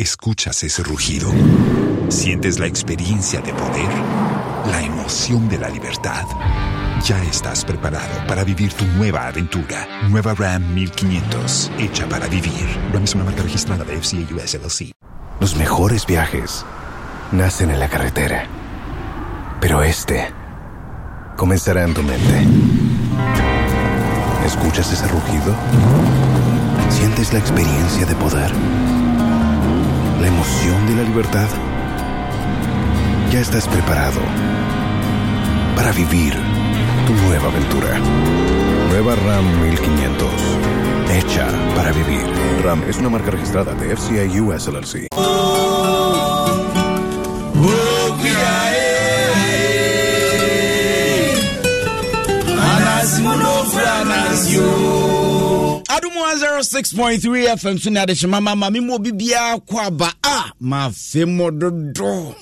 Escuchas ese rugido. Sientes la experiencia de poder, la emoción de la libertad. Ya estás preparado para vivir tu nueva aventura. Nueva Ram 1500, hecha para vivir. Ram es una marca registrada de FCA US Los mejores viajes nacen en la carretera. Pero este comenzará en tu mente. ¿Escuchas ese rugido? ¿Sientes la experiencia de poder? la emoción de la libertad? Ya estás preparado para vivir tu nueva aventura. Nueva RAM 1500. Hecha para vivir. RAM es una marca registrada de FCI US LLC. one zero oh six point three fm so ne adehye mama ma me mu obi biara kɔ aba a mafe mo dodo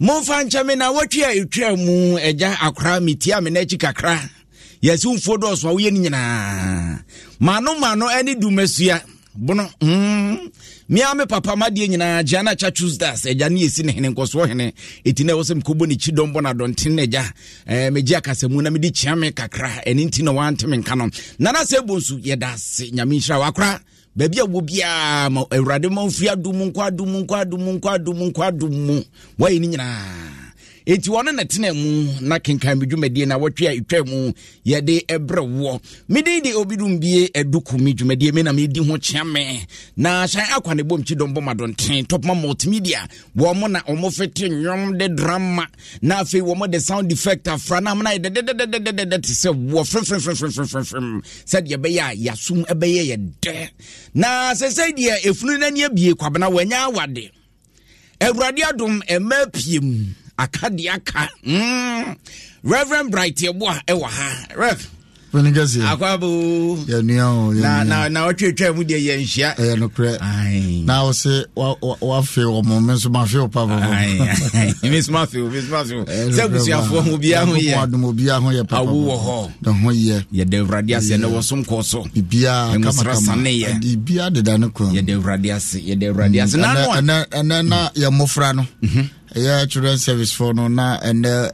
momfa nkyɛ me na watwi a ɛtwa mu agya akora metia me n'akyi kakra yɛsi mfuo dɔɔso a woyɛ no nyinaa mano mano ne dumasua bono hmm. mea me papa madeɛ nyinaa gya no akya tuesdays agya ne yɛsi ne hene nkɔsoɔ hene ɛti na ɛwɔ sɛ mekɔbɔ ne kyi dɔmbɔ no adɔnten no agya eh, megye akasamu na mede kyea me kakra ɛne nti na wante me nka no nana sɛ bo nso yɛda ase nyame nhyira wakora baabi a wɔ biaa ma awurade ma mfiri adom nkɔ adom nkɔ adom nkɔ adom nkɔ adom mu wayɛ no nyinaa enti wɔno na tena mu na kenkan me dwumadie na wɔtwe a ɛtwa mu yɛde ɛbrɛ woɔ meden de obidum bie aduku me dwumadie me na medi ho kyea me na hyɛn akwa ne bom kyidɔm bɔ madɔnten topma multimedia wɔ mo na ɔmo fete nnwom de drama na afei wɔ mo de sound effect afra na amona yɛ dɛdɛdɛdɛdɛdɛ te sɛ woɔ frɛmfrɛmfrɛmfrɛmfrɛmfrɛm sɛdeɛ ɛbɛyɛ a yɛasom ɛbɛyɛ yɛ dɛ na sɛ sɛ deɛ ɛfunu no ani abie kwabena wɔanya awade awurade adom ɛma piem aka deɛ hmm. reverend bright yɛboa ɛwɔ ha rev na ɔtwetwa mu deɛ yɛnhyia ɛyɛ nokorɛ na wo se wafe ɔmo me nso mafe wo pa sɛ abusuafoɔ ho bia ho yɛadom obia ho yɛ pawo wɔ hɔ ne ho yɛ yɛda awurade ase ne wɔsom kɔɔ so bibiaamsra saneyɛ biribia deda ne kɔ yɛda awurade ase yɛda awurade ase mm. ɛnɛ na mm. yɛ mmɔfra no mhm. ɛyɛ children service fɔ no na ɛnɛ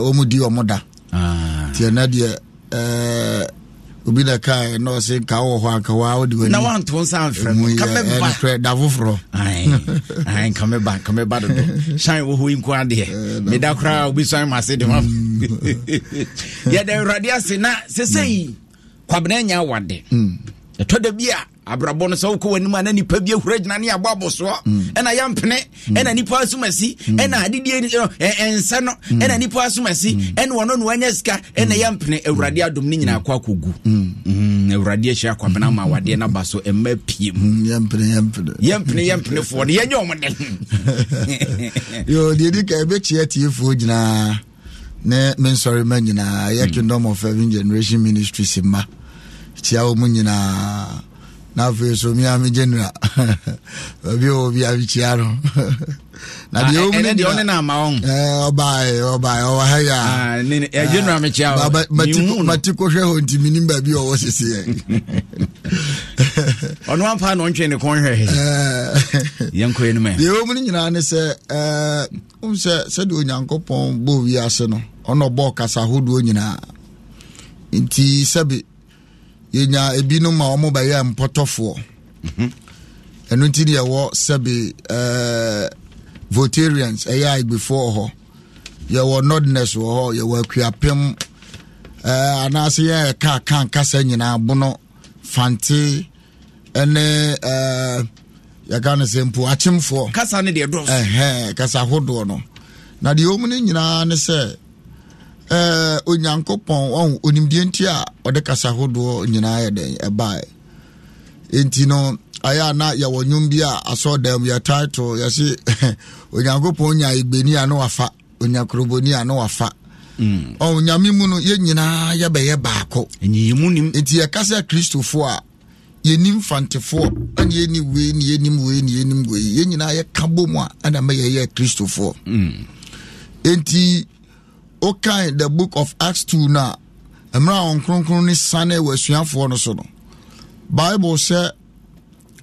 wɔmu di ɔmo da ah. nti ɛnɛ deɛ Eh, obi na ka na ɔse nka wɔ hɔ anka wa wode wani na wanto nsa mfrɛ mu ka me ba nokorɛ da foforɔ ai ka me ba ka me ba dodo yi nko adeɛ meda eh, koraa obi sɔn ma ase de ma mm. yɛda awurade ase na sesei mm. kwabena nya awade mm. ɛtɔ da bi abrabɔ no sɛ wokɔ w'anim a na nipa bi ahura gyina ne abɔ abosoɔ mm. ɛna yɛmpene mm. ɛna nipa asomasi mm. ɛna adedie ɛnsɛ no ɛna nipa asomasi ɛna wɔno no wanya sika ɛna yɛmpene awurade adom ne nyinaa kɔ akɔgu awurade ahyia kwabena ma awadeɛ no ba so ɛma pie mu yɛmpene yɛmpenefoɔ no yɛnyɛ ɔmo den deɛ di ka ɛbɛkyia tiefoɔ nyinaa ne mensɔre ma nyinaa yɛ kingdom of heaven generation ministries ma kyia wɔ mu nyinaa na afei so mi ame general baabi wɔ bi abikyia no na deɛ ɔmu ne deɛ ɔbaeɛ ɔbaeɛ ɔwɔ ha yɛ a kɔhwɛ hɔ nti baabi ɔwɔ ɔno ampa na ɔntwe ne kɔn hwɛ yɛnkɔ anim deɛ ɔmu nyinaa ne sɛ sɛ onyankopɔn no ɔna ahodoɔ nyinaa nti yɛnya ebinom a ɔmo bɛyɛ mpɔtɔfoɔ mhm. ɛno nti deɛ ɛwɔ sɛbe ɛɛ votarians ɛyɛ agbefoɔ hɔ yɛwɔ nordness wɔ hɔ yɛwɔ akuapem ɛɛ anaasɛ yɛ ɛka kan kasa nyinaa bono fante ɛne ɛɛ yɛka no sɛ mpo akyemfoɔ kasa ne deɛ dɔɔso ɛhɛn kasa ahodoɔ no na deɛ ɔmo ne nyinaa ne sɛ. Eh, onyankopɔn onimdeɛ nti a ɔde kasa hodoɔ nyinaa yɛ den ɛbaɛ enti no ayɛ a na yɛwɔ nwom bi a asɔɔdam yɛ title yɛse onyankopɔn nya igbeni a ne wafa onyakoroboni a ne wafa mm. ɔn nyame mu no yɛn nyinaa yɛbɛyɛ baako enti yɛkasa kristofoɔ a yɛnim fantefoɔ ɛne yɛni wei ne yɛnim wei ne yɛnim wei yɛn nyinaa yɛka bɔ mu a ɛna mɛyɛyɛ kristofoɔ mm. enti wokae the book of acts two no a mmerɛ a wɔn kronkron ne sane wɔ asuafoɔ no so no bible sɛ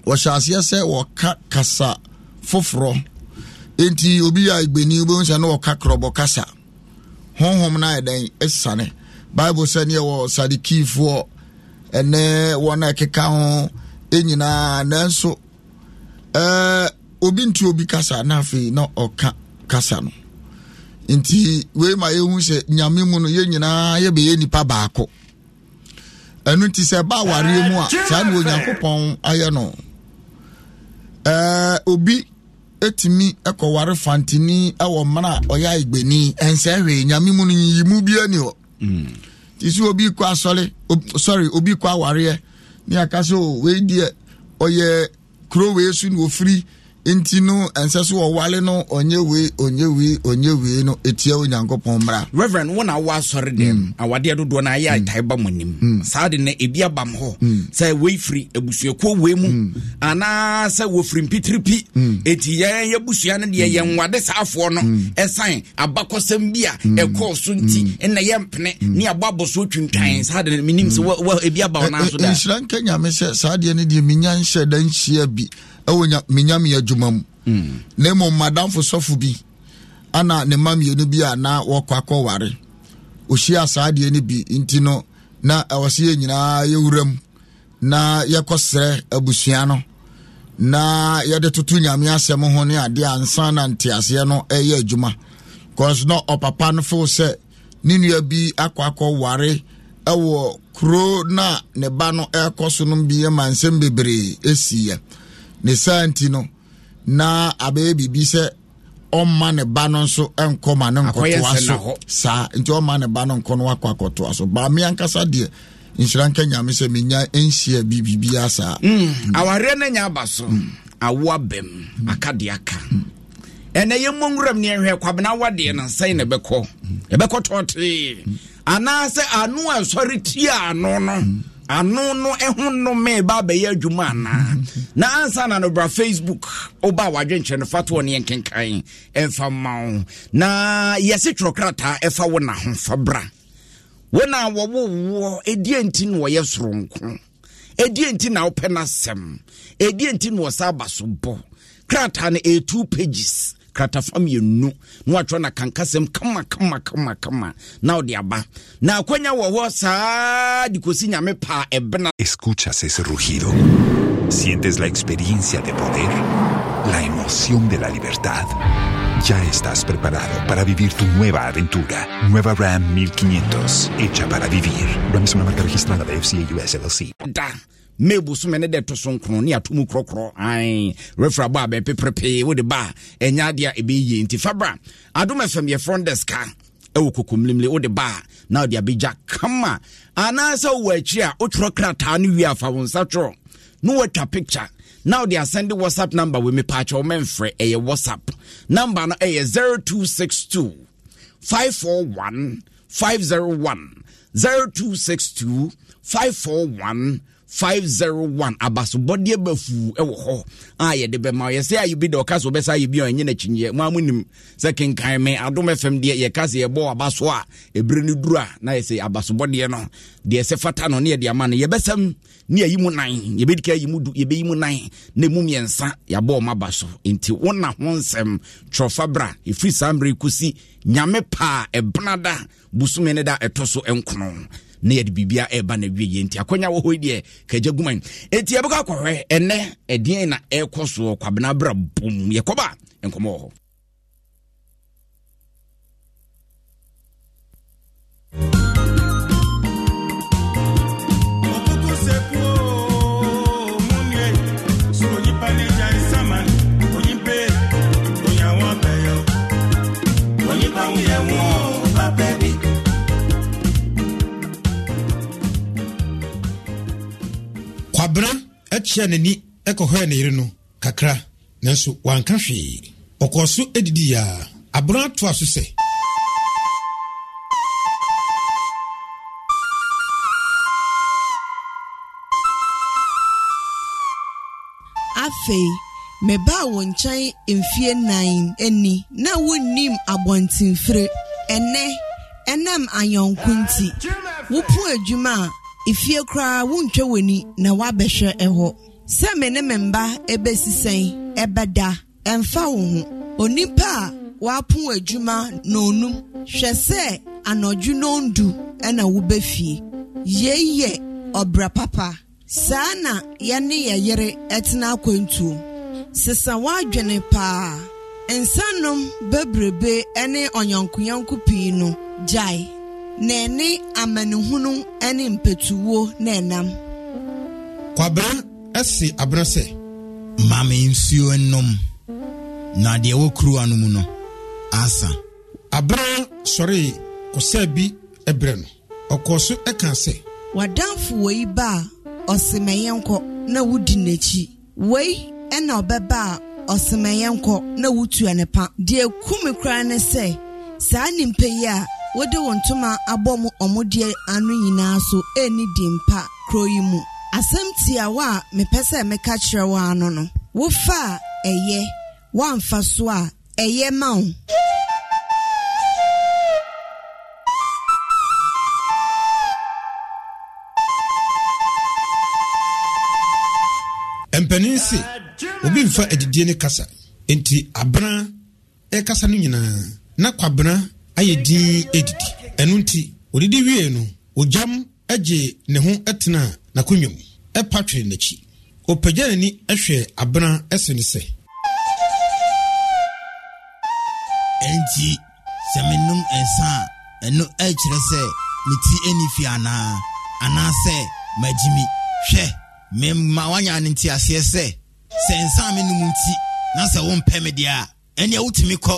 wɔhyɛ aseɛ sɛ wɔka kasa foforɔ nti obi a gbeni obi sɛ ne wɔka korɔbɔ kasa honhom no ayɛ dɛn asane bible sɛ neɛ wɔ sadukiifoɔ ɛnɛ wɔn a ɛkeka ho nyinaa nanso ɛɛ obi nti obi kasa na afei na ɔka kasa no nti wei ma yɛhu sɛ nyame mu no yɛn nyinaa yɛbɛyɛ nipa baako ɛno nti sɛ ɛba awareɛ mu a saa ne onyankopɔn ayɛ no ɛɛ obi etumi ɛkɔware fantini ɛwɔ mmana a ɔyɛ agbeni ɛnsɛ hwee nyame mu no yiyi mu bia ni hɔ mm. ti sɛ obi kɔ asɔre sɔre obi kɔ awareɛ ne aka sɛ o wei deɛ ɔyɛ kuro wei so na ofiri. nti no ɛnsɛ so wɔwale no ɔnyɛ wei ɔnyɛ wei ɔnyɛ wei no etia onyankopɔn mmara. reverend wọn na wọ asɔre dɛm mm. awadeɛ dodoɔ na ayɛ ataayi mm. ba mo nim mm. saa de na ebi aba mo hɔ sɛ wei firi ebusuakuo wei mu anaa sɛ wofiri mpitiripi eti yɛn yɛ busua no deɛ yɛn wade saafoɔ no ɛsan abakɔsɛm bi a ɛkɔɔ so nti ɛna yɛn mpene ne abɔ abɔso twintwan saa de na mi sɛ wɔ ebi aba wɔn nan so da. nhyira nyame sɛ saa deɛ ne deɛ mi nhyɛ dan hyia bi. ɛwɔ menyame adwuma mu hmm. na mmom madamfo sɔfo bi ana ne ma mmienu bi a na wɔkɔ akɔware ɔhyia saa deɛ no bi nti no na ɛwɔ sɛ yɛ nyinaa yɛwura mu na yɛkɔ serɛ abusua no na yɛde toto nyame asɛm ho ne adeɛ ansa na nteaseɛ no ɛyɛ adwuma cause na ɔpapa no fo sɛ ne nua bi akɔ akɔware ɛwɔ kuro na ne ba no ɛkɔ so no bi ma nsɛm bebree ɛsiiɛ ne saa nti no na abɛyɛ biribi sɛ ɔmma ne ba no nso nkɔ ma ne nkɔtoa so saa nti ɔmma ne ba no nkɔ no wakɔ akɔtoa so baame ankasa deɛ nhyira nka nyame sɛ menya nhyia saa. biribiaa mm, saa awareɛ no nya aba so awoa bɛm akadeɛ aka ɛnɛ yɛ mmɔ nwuram ne ɛhwɛ kwabena wadeɛ no nsɛn na ɛbɛkɔ ɛbɛkɔ tɔɔtee anaasɛ ano a ɛsɔre tie ano no mm. ano no ho nnome ba abɛyɛ adwuma anaa na ansa na no bra facebook woba wadwenkyerɛ no fa toɔ ne yɛnkenkan ɛmfa ma wo na yɛse twerɛkrataa ɛfa wo na ho fa bra wo na wɔwowoɔ ɛdeɛ nti na wɔyɛ soronko ɛdeɛ nti na wopɛ no asɛm ɛdeɛ nti na wɔsa aba so bɔ krataa no ɛyɛ e two pages na saa escuchas ese rugido sientes la experiencia de poder la emoción de la libertad Ya estás preparado para vivir tu nueva aventura. Nueva Ram 1500, hecha para vivir. Ram es una marca registrada de FCA US LLC. Da. may bosome ne de to so nkron ne ato mu korɔkorɔ an refra bɔ a bɛpeprepee wode ba enya ɛnyɛ adeɛ a ɛbɛyie nti fabra adom fm yɛ front desk a ɛwɔ kokomlimle wode ba a na wode abɛgya kama anaasɛ wowɔ akyi a wotwerɛ krataa no wie afa wo nsa twerɛ na watwa picture na wode asɛnde whatsapp number wɔ mepaakyɛ wo mɛmfrɛ ɛyɛ whatsapp number no ɛyɛ 0262 541 501 0262 541 501 abasobɔdeɛ bafuu wɔ hɔ a ah, yɛde bɛma yɛsɛ a yɛbi da ɔka so wobɛsa yɛbi a ɛnyɛ n'akyinyeɛ mo a monim sɛ kenkan me adom fm deɛ yɛka sɛ yɛbɔ abaso a ɛberɛ no duru a na yɛsɛ abasobɔdeɛ no deɛ sɛ fata no ne yɛde ama no yɛbɛsɛm ne yɛyi mu nan yɛbɛdi ka yi mu du yɛbɛyi mu nan na mu mmiɛnsa yɛabɔ ɔma aba so wona ho nsɛm twerɛfa bra saa mmerɛ kɔsi nyame paa ɛbenada e bosome no da ɛtɔ e so nkono na yɛde biribia ɛba na wie yɛ nti akɔnya wɔ hɔ deɛ kagya guman enti yɛbɛkɔ akɔhwɛ ɛnɛ ɛdeɛn na ɛrekɔ soɔ kwabena bra bom yɛkɔba nkɔmmɔ wɔ hɔ thank you abena akyia n'ani kɔhɔɛ ne yere no kakra nanso wanka hwee ɔkɔɔ so adidi a abena atoa so sɛ afei mebaa wo nkyɛn mfie nan ani na wonnim abɔntenfire ɛnɛ ɛnam ayɔnko nti wopo adwuma a efie koraa wontwa w'ani na wabɛhwɛ ɛhɔ sɛ me ne me mba ebesi sɛn ɛbɛda ɛmfa wo ho onipa a wapo adwuma na onum hwɛ sɛ anɔdwe na ondu ɛna wobɛfie yei yɛ ɔbra papa saa na yɛne yɛ yere ɛtena akwantuo sesa wadwene paa nsanom bebrebe ɛne ɔnyɔnkoyɔnko pii no gyae na ɛne amanehunu ne mpɛtuwo na enam Kwabere ɛsi abena sɛ maame nsuo nnom na deɛ ɛwɔ kuruwa no mu no asa Abere sɔre kɔsɛ bi ɛbrɛ no ɔkɔɔ so ɛka sɛ wadanfo wei ba a ɔsemɛyɛ nkɔ na wodi n'akyi wei na ɔbɛba a ɔsemɛyɛ nkɔ na wotua ne pa deɛ kum koraa ne sɛ saa nimpa yi a wɔde wɔn ntoma abɔ mu ɔmodeɛ ano nyinaa so ɛni di mpa kuro yi mu asɛm tiawa a mepɛ sɛ meka kyerɛ wo ano no wofa a ɛyɛ woamfa so a ɛyɛ ma wo mpanin se obi mfa adidie ne kasa nti abena ɛkasa no nyinaa na kwabena ayɛ din adidi ɛno nti odidi wie no ogyam agye ne ho tena n'akonnwa mu ɛpa twere n'akyi ɔpagya n'ani hwɛ abena ɛse ne sɛ ɛnti sɛ menom nsa a ɛno ɛkyerɛ sɛ me ti ani fi anaa anaasɛ magyimi hwɛ mema woanya ne nti aseɛ sɛ sɛ nsa a menom nti na sɛ wompɛ me deɛ a ɛneɛ wotumi kɔ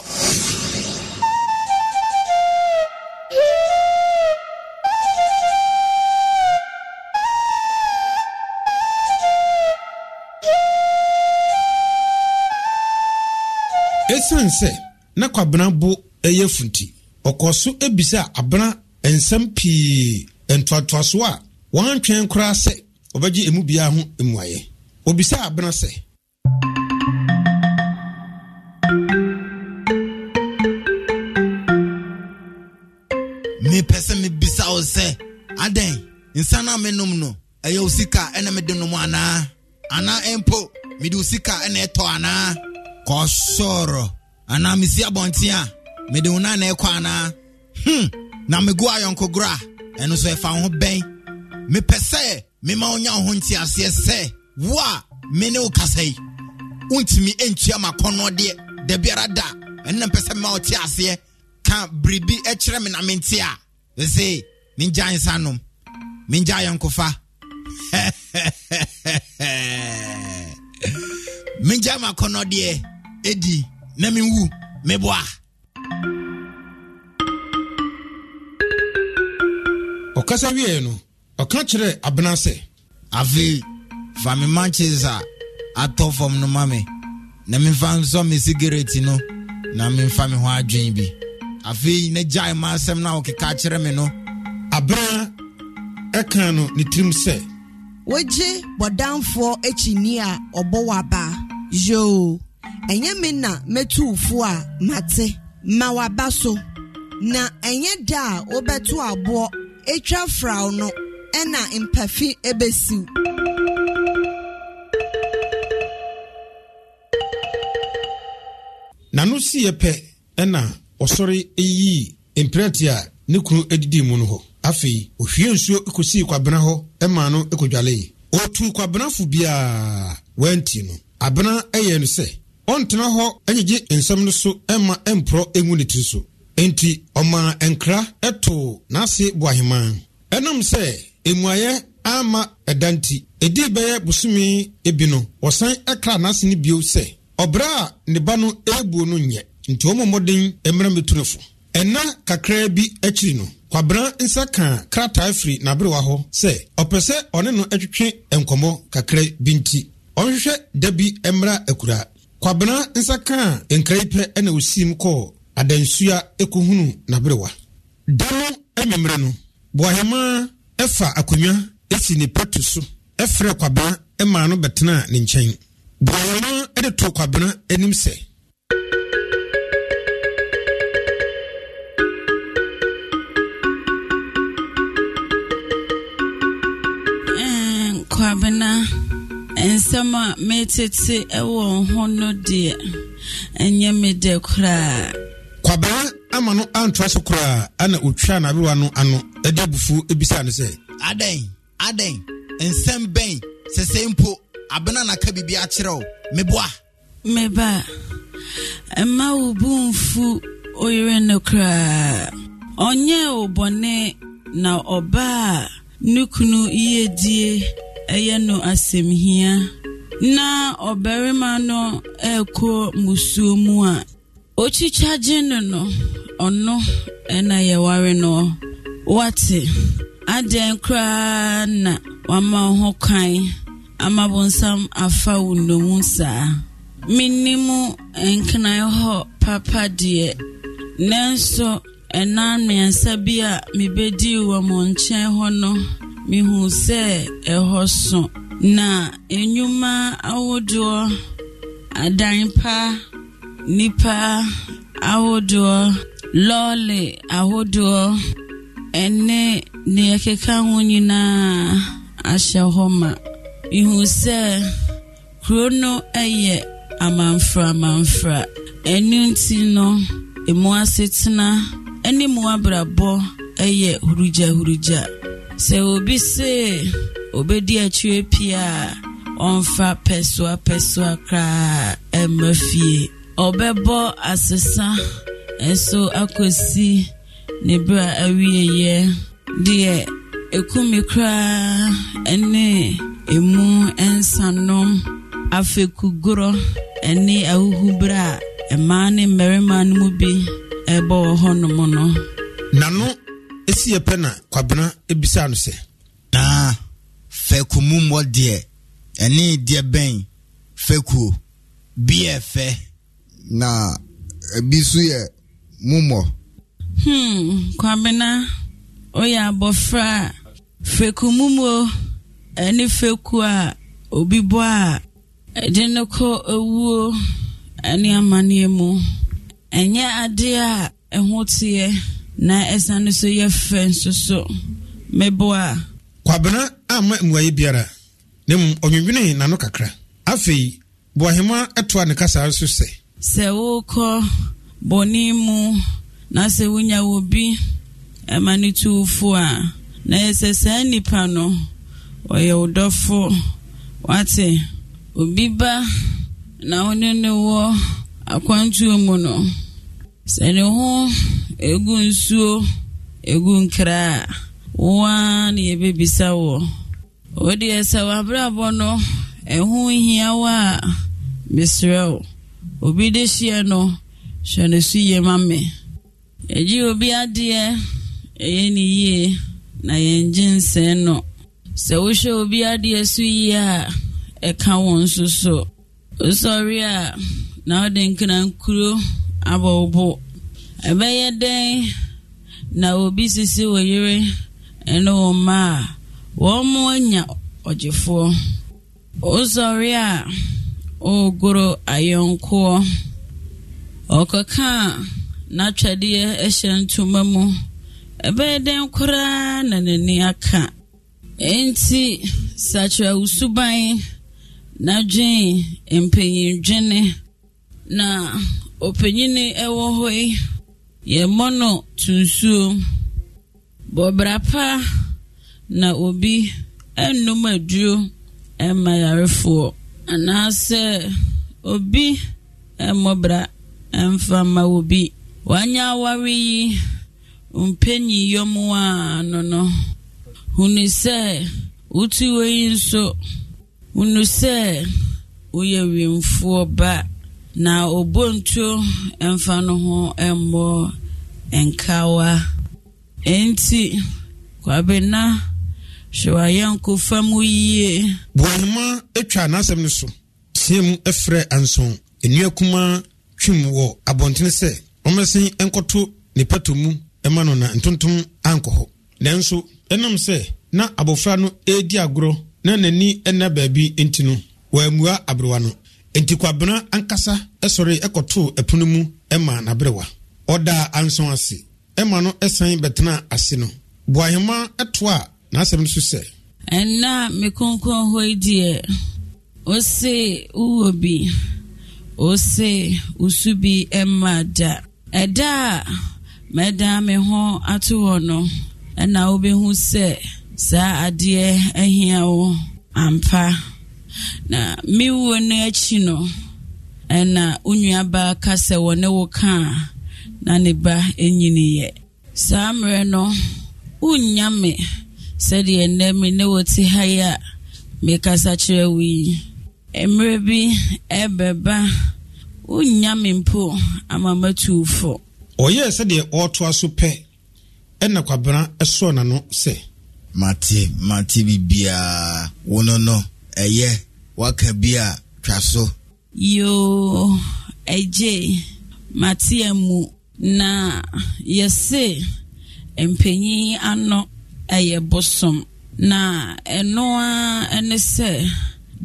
ɛsiane sɛ na kwabena bo ɛyɛ funti ɔkɔɔ so ebisa abena nsɛm pii ntoatoasoɔ a wɔn antwɛn koraa sɛ ɔbɛgye emu biara ho mmuayɛ obisa abena sɛ mepɛ sɛ mebisa wo sɛ adɛn nsa no a menom no ɛyɛ wo sika ɛna mede nom anaa anaa mpo mede wo sika ɛna ɛtɔ anaa ka ọ sọrọ anaa mesi abɔnten a mede wo nana ɛkɔ anaa hmm na megu ayɔnkogoro a ɛno nso ɛfa wo ho bɛn mepɛ sɛ mema wonya wo ho nteaseɛ sɛ wo a me ne wo kasa yi wontumi ɛntua makɔnnɔdeɛ da biara da ɛno na mpɛ sɛ mema wo te aseɛ ka biribi kyerɛ me na mente a ɛse mengya nsa nom mengya ayɔnkofa mengya makɔnnɔdeɛ Edi na menwu meboa ɔkasa wieɛ no ɔka kyerɛɛ abena sɛ afei fa me manches a atɔ fam no ma me na memfa nsɔ me sigareti no na memfa me ho adwen bi afei na gyae ma asɛm no a wɔkeka kyerɛ me no abena ɛka no ne tirim sɛ wogye bɔdamfoɔ akyinni a ɔbɔ wɔ abaa yoo ɛnyɛ me na mɛtu ufo a mate ma waba so na ɛnyɛ da a wobɛto aboɔ etwa fraw no ɛna mpafi ebesiw. n'ano si yɛ pɛ ɛna ɔsɔre yii mprɛte a ne kunu adidi mu no hɔ afei ohwie nsuo kosii kwabena hɔ ɛma no kodwalee ɔtuu kwabenafo biara wanti no abena ɛyɛ no sɛ ɔntena hɔ anyigye nsɛm no so ɛma ɛmporɔ ɛngu ne tiri so enti ɔmaa nkra ɛtoo n'ase boahemaa ɛnam sɛ mmuayɛ ama ɛda nti ɛdii bɛyɛ bosome ebi no wɔsan ɛkra n'ase no bio sɛ ɔbrɛ a ne ba no ɛrebuo no nyɛ nti wɔn mmɔden mmerɛ mɛtu fo ɛna kakraa bi akyiri no kwabena nsa kaa krataa firi n'aberewa hɔ sɛ ɔpɛ sɛ ɔne no twetwe nkɔmmɔ kakra bi nti ɔnhwehwɛ da bi mmra akura kwabena nsa kaa nkraipɛ ɛna osim kɔɔ adansua ekohunu n'aberewa da no ɛmɛmmerɛ no buahema ɛfa akonnwa esi ne pɛto so ɛfrɛ kwabena ɛmaa no bɛtena ne nkyɛn buahema ɛde to kwabena anim sɛ nsɛm a metete wɔ ho no deɛ ɛnyɛ me dɛ koraa kwabaa ama no antoa so koraa ana ɔtwaa n'abewa no ano ɛde abufuo ebisa no sɛ adɛn adɛn nsɛm bɛn sɛsɛ mpo abena naka biribi akyerɛ wo meboa meba mma wo bu mfu oyere no koraa ɔnyɛɛ wo bɔne na ɔbaa ne kunu yiedie ɛyɛ no asɛmhia na ɔbarima no ɛrekɔ musuo mu a okyikyagye no no ɔno ɛna yɛware no wate adɛn koraa na wama wo ho kwan ama bonsam afa wo nnomu saa mennim nkenan hɔ papa deɛ nanso ɛna mmiɛnsa bi a mebɛdii wɔ mo nkyɛn hɔ no mehu sɛ ɛhɔ so na nnwuma ahodoɔ adan pa nipa ahodoɔ lɔɔre ahodoɔ ɛne nea ɛkeka ho nyinaa ahyɛ hɔ ma mehu sɛ kuro no yɛ amamfra amamfra ɛno nti no emu asetena ne mu abrabɔ yɛ hurugya hurugya sɛ obi se obedi akyire pia a ɔmfa pɛsoa pɛsoa koraa ɛmma fie ɔbɛbɔ asesa nso akɔsi ne bere a awieeɛ deɛ ekumi koraa ne emu nsanom afekugorɔ ne ahuhubere a mmaa ne mmarima no mu bi ɛbɔ wɔ hɔnom no. nano E yɛ pɛ na kwabena ebisa no sɛ naa fɛku mu mmɔ deɛ ɛne deɛ bɛn fɛkuo biɛ fɛ na ebi so yɛ mummɔ hmm kwabena oyɛ abɔfra a fɛku mummo ɛne fɛku a obi bɔ a ɛde no kɔ ewuo ɛne amanneɛ mu ɛnyɛ adeɛ a ɛho teɛ na ɛsan no so yɛ fɛ nso so meboa. kwabena ama mmuayi biara ne mu ɔnwinwini n'ano kakra afei buahema ɛtoa ne kasa so sɛ. sɛ wokɔ bɔne mu na sɛ wonya wɔ bi ɛma ne tuwofo a na yɛ saa nnipa no ɔyɛ wo dɔfo wate obi ba na wo ne ne wɔ akwantuo mu no sɛ ne ho egwu nsuo egwu nkere a woa na yɛbɛbisa wɔ o deɛ sɛ w'abrabɔ no ɛho hia wo a mesrɛ obi de hyeɛ no hwɛ no yi yie Eji obi adeɛ ɛyɛ ne yie na yɛngye nsɛn no sɛ wohwɛ obi adeɛ so yi a ekawo wɔn nso so wosɔre na wode nkra nkuro abɔ wo ɛbɛyɛ dɛn na obi sisi wɔ yere ne wɔ mma a wɔn mo anya ɔgyefoɔ ɔsɔre a ɔregoro ayɔnkoɔ ɔkɔka a n'atwadeɛ hyɛ ntoma mu ɛbɛyɛ dɛn koraa na n'ani aka nti sakyerɛ wo na na dwen mpanyindwene na ɔpanyini ɛwɔ hɔ yi yɛ mmɔno to bɔbra pa na obi nnom aduro mma yarefoɔ anaasɛ obi mmɔbra mfa ma obi wanyɛ aware yi mpanyiyɔm a ano no hunu sɛ wotu wɔ yi nso hunu sɛ woyɛ wemfoɔ ba na obontuo mfa no ho mmɔ nkawa enti kwabena hwɛ wayɛnko fa mu yie boanoma atwa n'asɛm no so team frɛ anson nnua kuma twim wɔ abɔntene sɛ ɔmɛsen nkɔto ne pato mu ma no na ntontom ankɔ hɔ nanso ɛnam sɛ na abɔfra no ɛredi agorɔ na n'ani ɛna beebi nti no wɔammua aberewa no enti kwabena ankasa sɔre ɛkɔtoo ɛpono mu ma n'aberewa ɔdaa anson ase ma no san bɛtena ase no boahema ɛto a n'asɛm no so sɛ ɛna me kronkron hɔ yi deɛ ose wowɔ bi ose wosu bi ɛma da ɛda a mɛdan me ho ato hɔ no ɛna wobɛhu sɛ saa adeɛ ahia wo ampa na mewuo no akyi no ɛna wo nuabaa ka sɛ wɔne wo ka na ne ba nyiniyɛ saa mmerɛ no wonnya me sɛdeɛ nnɛ me ne wɔte ha yi a mekasa kyerɛ wo yi mmerɛ bi ɛbɛba wonnya me mpo ama matuufo ɔyɛɛ sɛdeɛ ɔretoa so pɛ ɛna kwabena ɛsɔɔ n'ano sɛ mate mate bibiaa wo no no ɛyɛ waka bi a twa so. yoo ɛgye matea mu na yɛse mpanyin ano ɛyɛ bosom na ɛnoa ɛne sɛ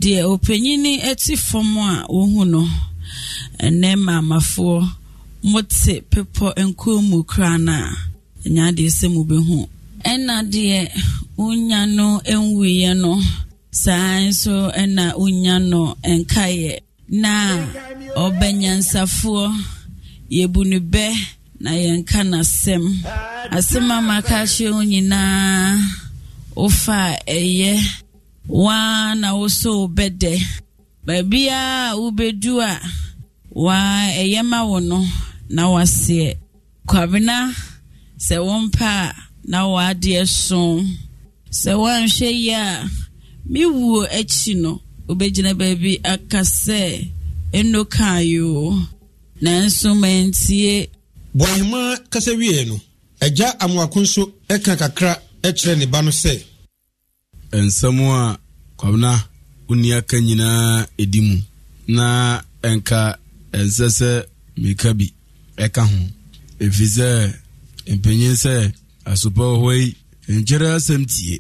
deɛ ɔpanyin ɛte fam a wohu no ɛnɛ maamafoɔ mote pepɔ nkuo mu kura no a ɛnya deɛ sɛ mubɛhu ɛna deɛ wonya no nwuiɛ no saa nso na wonya no nkaeɛ na ɔbɛnyansafoɔ yɛbu no bɛ na yɛnka n'asɛm asɛm ama ka kyerɛ wo nyinaa wofa ɛyɛ waa na woso bɛdɛ baabiaa wobɛdu a waa ɛyɛ ma wo no na waseɛ kwabena sɛ mpa a na waadeɛ so sɛ woanhwɛ yi a me wuo akyi no obɛgyina baabi aka sɛ ɛno kaeɛ o nanso mantie boahema kasa wie no agya amoako nso ɛka kakra kyerɛ ne ba no sɛ ɛnsɛm a kwamena wonni aka nyinaa ɛdi mu na ɛnka ɛnsɛ sɛ meka bi ɛka ho ɛfiri sɛ mpanyin sɛ asopɛ hɔ yi nkyɛrɛ asɛm tie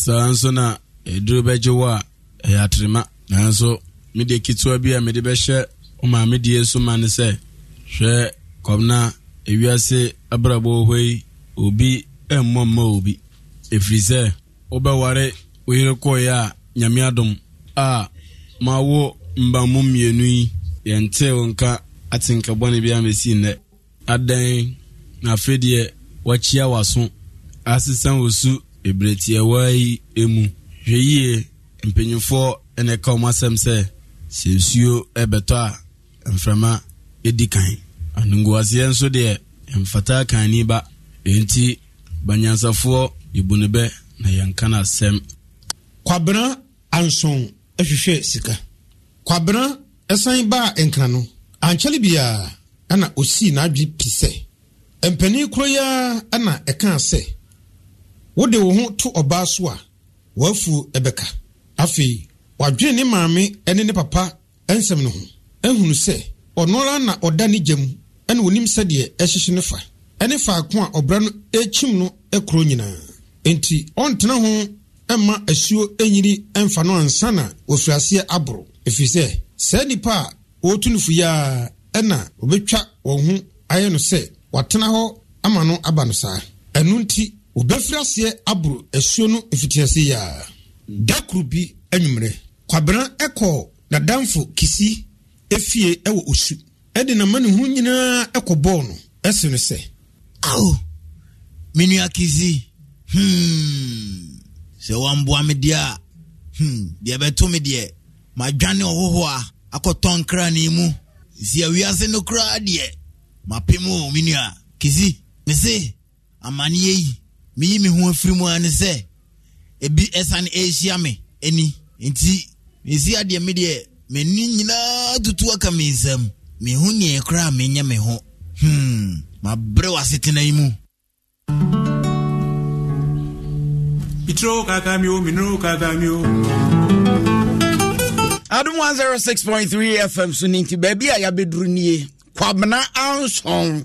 saa nso na ɛduro bɛgye wɔ a ɛyɛ atrema nanso mede ketewa bi a mede bɛhyɛ maame so ma ne sɛ hwɛ kɔmna ewiase abrabɔ yi obi mmɔ mma obi ɛfiri sɛ wobɛware wo yere a nyame adom a mawo mmienu yi wo nka atenkabɔne bi nnɛ na afei deɛ wakyia w'aso asesa su yi hwɛ yie mpanyinfoɔ ɛna ɛka wɔn asɛm sɛ sɛ nsuo ɛbɛtɔ a mframa ɛdi kan anongoaseɛ nso deɛ mfata kan ni ba enti banyansafoɔ yɛbu ne na yɛnka no asɛm kwabena anson ahwehwɛ sika kwabena ɛsan baa nkra no ankyɛre biara ɛna osii n'adwe pi sɛ mpanin koro yi ara ɛna ɛkaa sɛ wode wo ho to ɔbaa so a wafu ebeka, afei wadwene ne maame ne ne papa nsɛm no ho ahunu sɛ ɔno ara na ɔda ne gya mu ɛna onim sɛdeɛ ɛhyehyɛ ne fa ɛne faako a ɔbra no ekyim no ɛkoro nyinaa nti ɔntena ho ɛma asuo enyiri ɛnfa no ansa na wofiri aseɛ aboro efi sɛ saa nipa a wɔretu no fu yaa ɛna obetwa wɔn ho ayɛ no sɛ watena hɔ ama no aba no saa ɛnu nti wɔbɛfiri aseɛ aboro asuo no mfitiase yia da koro bi anwummerɛ kwabena ɛkɔɔ nadamfo kisi efie ɛwɔ osu ɛde n'amanihu nyinaa ɛkɔ bɔɔl no ɛsi no sɛ. awo menua kisi hmm. sɛ wamboa me deɛ a hmm. deɛ bɛto ma deɛ madwane ɔhoho a akɔtɔ nkra ne mu si awiase no koraa deɛ mapem o menua kisi mese amanneɛ yi meyi me ho afiri mu a ne sɛ ebi ɛsane ɛrehyia me ani nti mesi adeɛ me deɛ m'ani nyinaa tutu aka me nsam mehu neɛ koraa menyɛ me ho hmm mabrɛ w'asetena yi mu Mitro kakamio, minro kakamio. Adum 106.3 FM so ti baabi a yɛabɛduru nie kwabena anson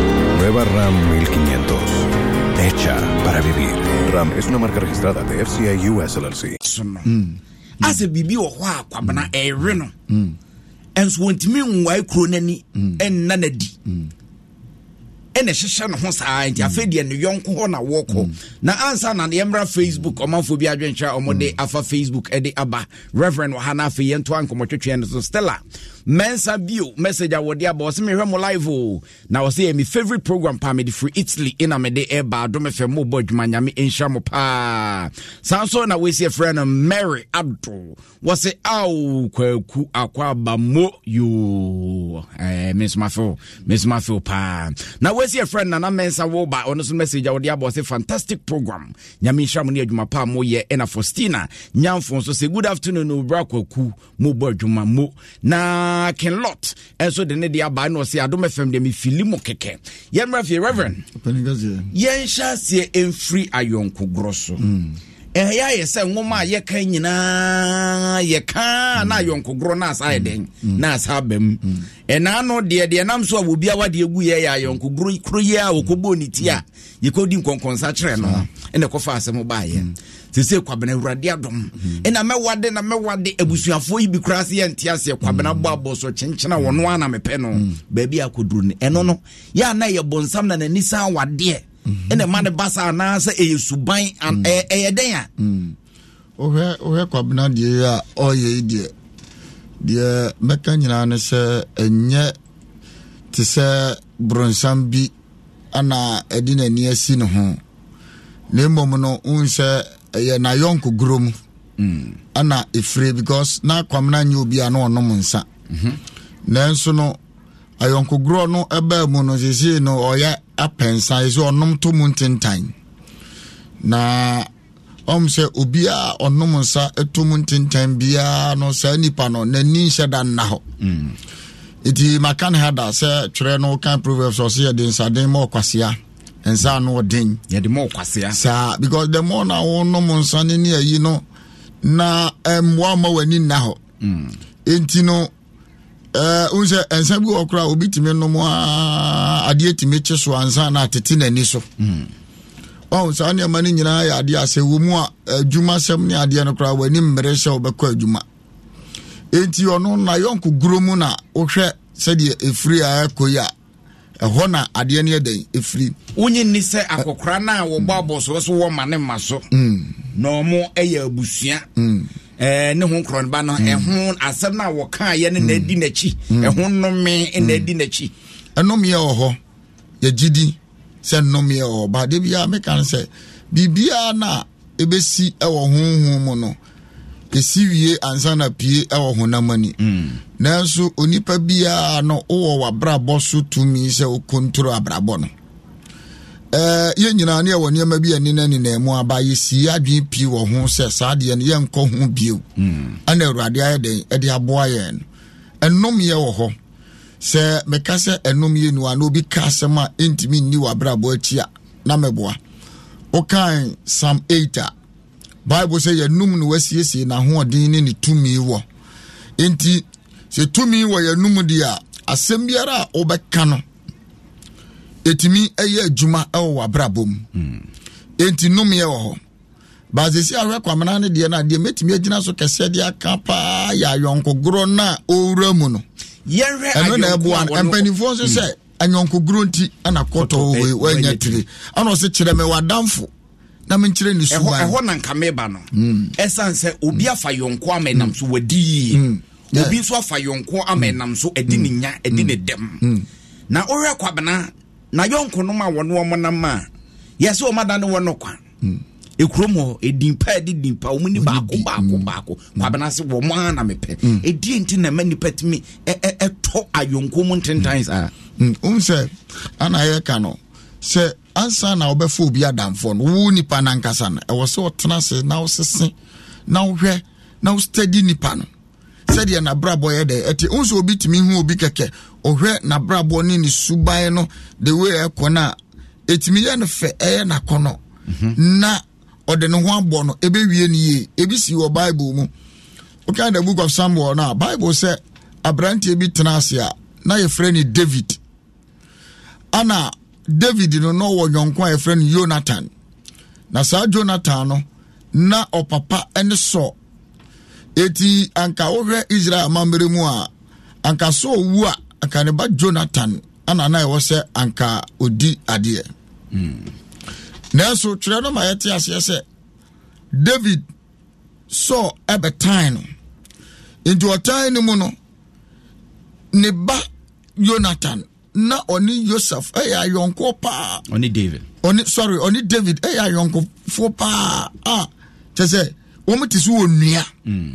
Nueva RAM 1500. Hecha para vivir. RAM es una marca registrada de FCI US LLC. Mm. asɛ biribi wɔ hɔ a kwabena mm. reno. no mm. ɛnso wɔntumi en kuro no en ɛnna no adi ɛna ɛhyehyɛ ne ho saa nti na woko. na ansa na yɛmmra facebook ɔmanfoɔ bi o ɔmode afa facebook edi aba reverend hana ha no afei yɛntoa stella mensa bio message a wɔde aba ɔsɛ mehwɛ mo live o na ɔsɛ yɛ me favorite program paa mede firi italy ɛna mede ɛba adom fɛ mobɔ adwuma nyame ɛnhyira mo paa saa nso na wɔsi frɛ no mary ado wɔse ao kwaku akɔ aba mo yo eh, mesomafeo mesomafeo paa na wɔsi frɛ no nana mensa ba ɔno so message a wɔde aba ɔsɛ fantastic program nyame nhyira mo ne adwuma paa moyɛ ɛna faustina nyamfo nso sɛ good afternoon obra kwaku mobɔ adwuma mo na nyinaa kenlot ɛso de ne de aba na ɔsɛ adom fm de mefili mu kɛkɛ yɛmmra fie reverend mm, yɛnhyɛ aseɛ in free so mm. ɛyɛ ayɛ sɛ nwoma a yɛka nyinaa yɛka mm. na ayɔnkogorɔ na asa ayɛ dɛn mm. na asa aba mu ɛna no deɛ deɛ nam so a wɔbia wade agu yɛ yɛ ayɔnkogorɔ koro yi a wɔkɔbɔɔ ne ti a yɛkɔdi nkɔnkɔnsa kyerɛ no sese kwabena awurade adom mhm. ɛna mɛwade na mɛwade abusuafoɔ yi bi koraa sɛ yɛnte aseɛ kwabena mhm. bɔ abɔ so kyenkyena wɔno a na mepɛ no mhm. baabi akɔduru no ɛno no yɛ na yɛ bɔnsam na n'ani saa wadeɛ ɛna ma ne ba sa anaasɛ ɛyɛ suban ɛyɛ dɛn a wohwɛ wohwɛ kwabena deɛ a ɔyɛ yi deɛ deɛ mɛka nyinaa ne sɛ ɛnyɛ te sɛ borɔnsam bi ana ɛde n'ani asi ne ho na mmom no wohu sɛ ɛyɛ nayɔnko guro mu mm. ɛna ɛfire because na kwamena nyɛ obi a na ɔnom nsa mhm. nanso no ayɔnkogorɔ no ɛbaa mu no seesei no ɔyɛ apɛnsa ɛsɛ ɔnom to mu ntentan na ɔm sɛ obiaa ɔnom nsa ɛto mu ntentan biara no saa nnipa no n'ani nhyɛ da nna hɔ mm. nti maka ne ha da sɛ twerɛ no kan proverbs ɔse yɛde nsaden ma ɔkwasea nsa no ɔden yɛde mɔ kwasea saa because the more na wonom nsane ne ayi no na eh, mmoa ma w'ani nna hɔ hmm. enti no eh, wohu sɛ nsa bi wɔ koraa obi tumi nom a adeɛ tumi kye so ansa na atete n'ani so hmm. ɔhu saa nneɛma no nyinaa yɛ adeɛ a sɛ wɔ mu a adwuma sɛm ne adeɛ no koraa w'ani mmere sɛ wobɛkɔ adwuma enti ɔno na yɔnko guro mu na wohwɛ sɛdeɛ ɛfiri a ɛkɔ yi a ɛhɔ na adeɛ no yɛdɛn ɛfiri wonye nni sɛ akɔkora no a wɔbɔ mm. abɔsoɔ so wɔ ma ne ma so mm. na ɔmo ɛyɛ abusua mm. ne ho nkorɔnba no ɛho asɛm no a wɔkaayɛ no na adi n'akyi ɛho nnome na adi n'akyi ɛnomeɛ wɔ hɔ yɛgyidi sɛ nnomeɛ wɔ hɔ ba de biaa meka no sɛ biribiaa no a ɛbɛsi ɛwɔ honhom mu no ɛsi wie ansa na pie ɛwɔ honam ani mm. nanso onipa biara no wowɔ w'abrabɔ so tumi sɛ wokontoro abrabɔ no ɛɛ yɛn nyinaa ne ɛwɔ nneɛma bi ɛne na nenam mu aba yɛsi adwene pii wɔ ho sɛ saa deɛ no yɛnkɔ ho bio mm. ɛna awurade ayɛ dɛn ɛde aboa yɛn no ɛnomyɛ wɔ hɔ sɛ meka sɛ ɛnomyɛ nu a na obi ka asɛm a ɛntumi nni w'abrabɔ akyi a na mɛboa wokan sam 8 bible sɛ yɛnum no wasiesie n'ahoɔden ne ne tumi wɔ nti sɛ tumi wɔ yɛnum deɛ a asɛm biara a wobɛka no ɛtumi ɛyɛ adwuma ɛwɔ w'abrabɔ mu hmm. enti nomeɛ wɔ hɔ baasesi ahwɛ kwamena no deɛ no adeɛ mɛtumi agyina so kɛsɛ de aka paa yɛ ayɔnkogorɔ no a ɔwura mu no ɛno na ɛboa no mpanimfoɔ nso hmm. sɛ anyɔnkogorɔ nti ɛna kɔtɔ wei eh, woanya tire ɛna ɔse kyerɛ me w'adamfo na menkyerɛ ne suban ɛhɔ na nka meba no ɛsiane sɛ obi afa yɔnko ama ɛnam so wadi yie obi nso afa yɔnko ama ɛnam so ɛdi ne nya ɛdi ne dɛm na ɔhwɛ kwabena na yɔnko nom a wɔne wɔn nam a yɛsɛ wɔn adane wɔn no kwa ekurom hɔ edimpa ɛdi dimpa wɔn ni baako baako baako kwabena se wɔn a na mepɛ edi nti na ɛma nipa tumi ɛɛ ɛtɔ ayɔnko mu ntentan saa. n sɛ ana yɛ no sɛ ansa na wobɛfa obi adamfoɔ no wo nipa no ankasa no ɛwɔ sɛ ɔtena se na wosese na wohwɛ na wostadi nipa no sɛdeɛ nabrabɔ yɛ dɛ ɛti wo sɛ obi tumi hu obi kɛkɛ ɔhwɛ nabrabɔ ne ne suban no de wei ɛkɔ no a ɛtumi yɛ no fɛ ɛyɛ nakɔnɔ mhm. na ɔde ne ho abɔ no ɛbɛwie no yie ebi si wɔ bible mu woka the book of samuel no a bible sɛ aberanteɛ bi tena ase a na yɛfrɛ ne david ana david no na ɔwɔ yɔnko a yɛfrɛ no jonathan na saa jonathan no na ɔpapa ne sɔ eti anka wohwɛ israel amammerɛ mu a anka sɔ owu a anka ne ba jonathan ana na ɛwɔ sɛ anka odi adeɛ mm. nanso twerɛ no ma yɛte aseɛ sɛ david sɔ ɛbɛtan no nti ɔtan no mu no ne ba jonathan na ɔne yosef ɛyɛ eh, ayɔnkoɔ paa ɔne david ɔne sorry ɔne david ɛyɛ eh, ayɔnkofoɔ paa a ah, kyɛ sɛ wɔn ti so wɔ nnua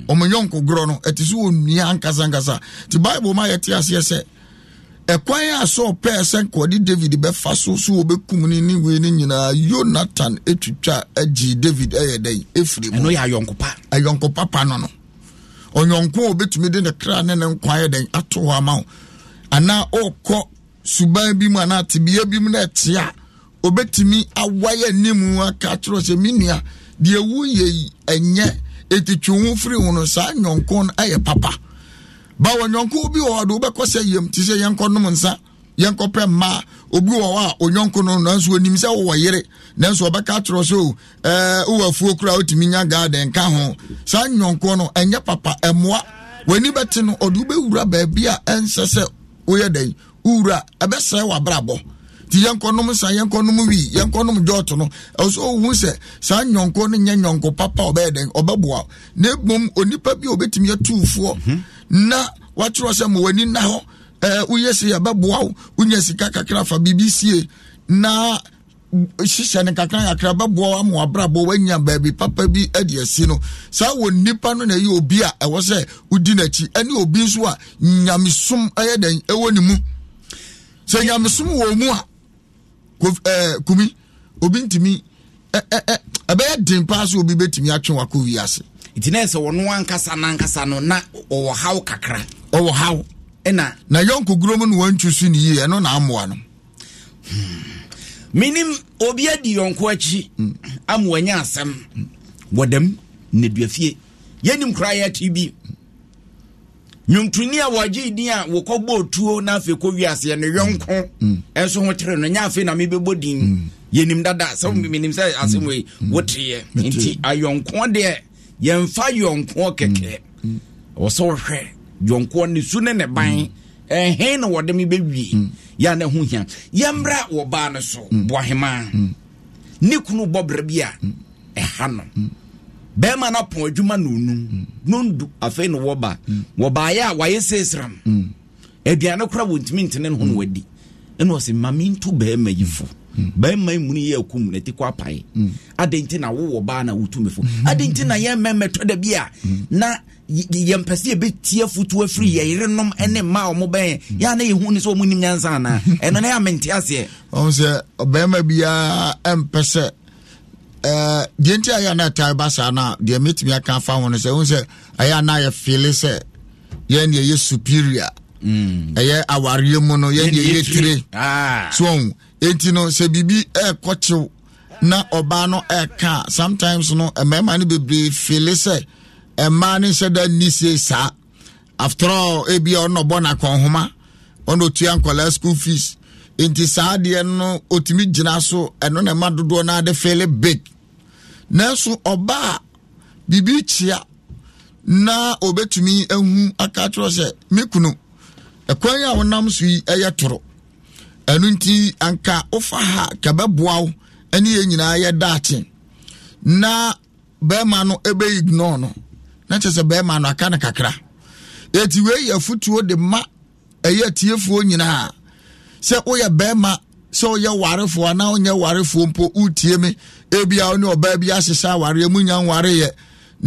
wɔn mm. yɔnko gorɔ no ɛti so wɔ nnua nkasankasa ti bible mu a yɛte aseɛ sɛ ɛkwan a sɔɔ pɛɛ sɛ nkɔde david bɛfa so so wɔbɛkum ne ne wei no nyinaa yonatan etwitwa agyi david ɛyɛ dɛ efiri mu ɛno yɛ ayɔnkopa ayɔnkopa pa no no ɔnyɔnko a obetumi de ne kra ne ne nkwa yɛ dɛ ato hɔ ama wo anaa ɔɔkɔ suban bi mu anaa tibia bi mu na ɛte a obetumi awayɛ nimu aka kyerɛ sɛ mi nua deɛ wu yɛ yi ɛnyɛ eti twi ho firi ho no saa nyɔnko ɛyɛ papa bawo nyɔnko bi wɔ hɔ do wobɛkɔ sɛ yam te sɛ yɛnkɔ nom nsa yɛnkɔ pɛ mmaa obi wɔ hɔ a onyɔnko no nanso onim sɛ wɔwɔ yere nanso ɔbɛka akyerɛ so oh, ɛɛ wowɔ afuo kura otumi nya garden ka ho saa nyɔnko no ɛnyɛ papa ɛmoa w'ani bɛte no ɔde wobɛwura baabi a ɛnsɛ sɛ woyɛ dɛn wowura ɛbɛsɛe wabrabɔ nti yɛnkɔnom sa yɛnkɔnom wii yɛnkɔnom gyɔɔto no ɛwɔ sɛ ɔhu sɛ saa nyɔnko no nyɛ nyɔnko papa ɔbɛyɛ dɛn ɔbɛboa na mmom onipa bi a ɔbɛtumi yɛtuufoɔ mhm. na wakyerɛ sɛ ma w'ani nna hɔ ɛɛ woyɛ se yɛbɛboa wo wonya sika kakra fa biribi sie na hyehyɛ no kakra kakra bɛboa ama wabrabɔ wanya baabi papa bi adi asi no saa wɔ nnipa no na ɛyɛ obi a ɛwɔ sɛ wodi n'akyi ɛne obi nso a nyamesom ɛyɛ dɛn ɛwɔ ne mu sɛ nyamesom wɔ mu a kumi obi ntumi ɛbɛyɛ den paa sɛ obi bɛtumi atwe wakɔ wiase nti na sɛ wɔno ankasa no no na ɔwɔ haw kakra ɔwɔ haw ɛna na yɔnkoguro mu no wantwi so ne yie ɛno na amoa no menim obi adi yɔnko akyi ama wanya asɛm wɔdam nnɛduafie yɛnim koraa yɛakyi bi nwomtoni a wɔgye din a wɔkɔbɔ tuo na afei kɔ wiaseɛ no yɔnko mm. ɛnso ho kyerɛ no nyɛ afei na mebɛbɔ din mm. yɛnim dada sɛ mm. menim sɛ asɛm wei woteeɛ nti ayɔnko deɛ yɛmfa yɔnko kɛkɛ ɛwɔ sɛ wohwɛ yɔnko ne su ne ne ban ɛhe na wɔde me bɛwie yɛ na ho hia yɛmmra wɔ baa no so boahemaa ne kunu bɔbrɛ bi a ɛha no bɛrima no apɔn adwuma na onum mm. nondu afei na wɔba mm. wɔbaeɛ a wayɛ seesram mm. aduane kora wɔntumi ntene ne ho na wadi ɛna ɔsɛ mame nto bɛrima yi fo bɛrima yi muni yɛ akum na ti kɔ apae adɛn nti na wowɔ baa na wotumi fo adɛn nti na yɛn mɛmɛ tɔ da bi a na yɛn pɛsɛ yɛbɛtie futu afiri yɛ yerenom ne mmaa a wɔn bɛn yɛn na yɛn hu sɛ wɔn nim nyansa anaa ɛno na yɛ amente aseɛ. ɔn sɛ bɛrima biara mpɛ sɛ Eh, deɛ nti ayɛ na ɛtare ba saa no a deɛ mɛtumi aka afa ho no sɛ wohu sɛ ɛyɛ na yɛfeele sɛ yɛn deɛ yɛ superior mm. ɛyɛ awareɛ mu no yɛn deɛ yɛtire ah. so enti no sɛ biribi ɛɛkɔkyew na ɔbaa no ɛɛka sometimes no mmarima no bebree feele sɛ mmaa no nhyɛ da nni sie saa after all ebia ɔno ɔbɔ n'akɔnhoma ɔno otua nkɔlaa school fees nti saa adeɛ no otumi gyina so ɛno na ɛma dodoɔ no ade feele big nanso ɔbaa biribi kyia na obetumi ehu aka kyerɛ sɛ me kunu ɛkwan a wɔnam so yi ɛyɛ toro ɛnu nti anka wofa ha kɛbɛboa wo ɛne yɛn nyinaa yɛ daakye na bɛrima no ebe ignore no na kyerɛ sɛ bɛrima no aka no kakra eti wei yɛ futuo de ma ɛyɛ tiefoɔ nyinaa sɛ woyɛ bɛrima sɛ woyɛ warefoɔ anaa wonyɛ warefoɔ mpo wotie me ebia wo ne ɔbaa bi ahyehyɛ awareɛ mu nya nwareɛ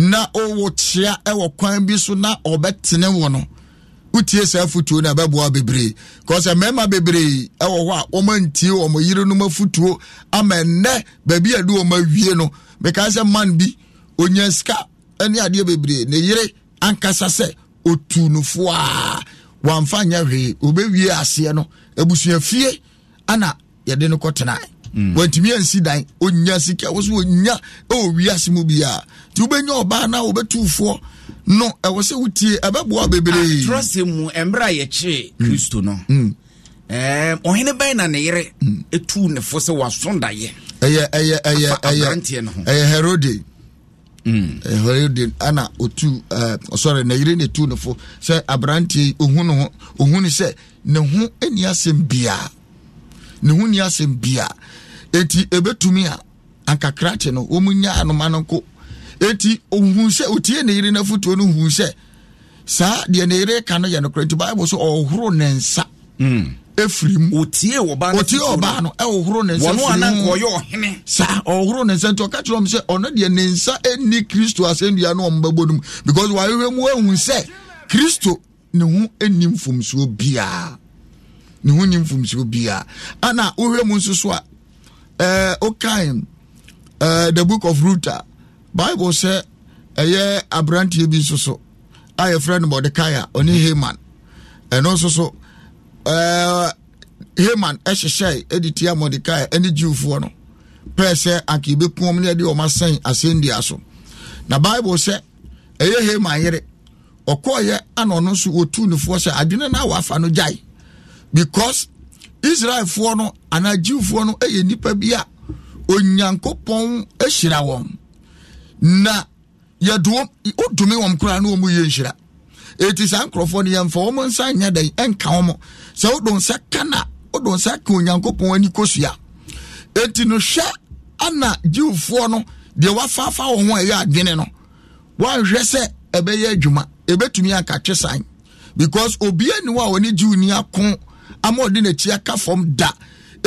na ɔwɔ kyea ɛwɔ kwan bi so na ɔbɛtene wo no wotie saa afotuo no ɛbɛboa bebree kɔsɛ mmarima bebree ɛwɔ hɔ a wɔma ntie wɔn yere no afotuo ama ɛnɛ baabi a ɛde wɔn awie no mekaa sɛ man bi onya sika ne adeɛ bebree ne yere ankasa sɛ otu no foaa wɔamfa nyɛ hwee obɛwie aseɛ no abusua fie ana yɛde no kɔtenae Mm. wantumi ansi dan ɔnya sika e wo so ɔnya ɛwɔ wiase mu biaa nti wobɛnya ɔbaa na wobɛtufoɔ no ɛwɔ sɛ wotie ɛbɛboa bebreetrɔ ah, sɛ mu ɛmmerɛ a yɛkyeree mm. kristo no mm. ɔhene bɛn na ne yere ɛtu ne fo sɛ waso daeɛ ɛyɛ ɛyɛ ɛyɛ ɛyɛ ɛyɛ herode herode ana otu ɔsɔre oh, na yere na ɛtu ne fo sɛ aberanteɛ yi ohun ne ho ohun ne sɛ ne ho ani asɛm biaa ne ho ni asɛm bia eti ebetumi a ankakra kye no wɔn nya anoma no nko eti ohun sɛ otie ne yere n'afotuo no hun sɛ saa deɛ ne yere ka no yɛ no kora nti baibu so ɔhoro ne nsa. Mm. efiri mu otie ɔbaa no otie ɔbaa no ɛhohoro ne nsa firi mu wɔn anan kɔ yɛ ɔhene saa ɔhohoro ne nsa nti ɔka kyerɛ ɔmo sɛ ɔno deɛ ne nsa ɛni kristo asɛnnua no ɔmo bɛbɔ no mu because wɔahwehwɛ mu ehu sɛ kristo ne ho ɛni mfomsoɔ biara ne ho nim fomsuo biara ana wohwɛ mu nso so a ɛɛ eh, eh, the book of ruth bible sɛ ɛyɛ aberanteɛ bi nso so a yɛfrɛ no mɔdekai a ɔne haman ɛno nso so ɛɛ eh, haman ɛhyehyɛ ɛde tia mɔdekai ɛne jiwfoɔ no pɛɛ sɛ anka yɛbɛku wɔn ne yɛde wɔn asɛn asɛndua so na bible sɛ ɛyɛ haman yere ɔkɔɔyɛ ana ɔno nso wɔtu nufoɔ sɛ adwene no a wɔafa no gyae because israelfoɔ no anaa jiwfoɔ no yɛ nipa bi a onyankopɔn ahyira wɔn na yɛdoɔ wodome wɔn koraa na wɔn yɛ nhyira eti saa nkurɔfoɔ no yɛmfa wɔn nsa nyɛ dɛn ɛnka wɔn sɛ wodo nsa ka na wodo nsa ka onyankopɔn ani kosua eti no hwɛ ana jiwfoɔ no deɛ wafaafa wɔn ho a ɛyɛ adwene no wɔahwɛ sɛ ɛbɛyɛ adwuma ebetumi akatwe san because obiara ni hɔ a wɔne jiw ni ako. ama ɔde n'akyi aka fam da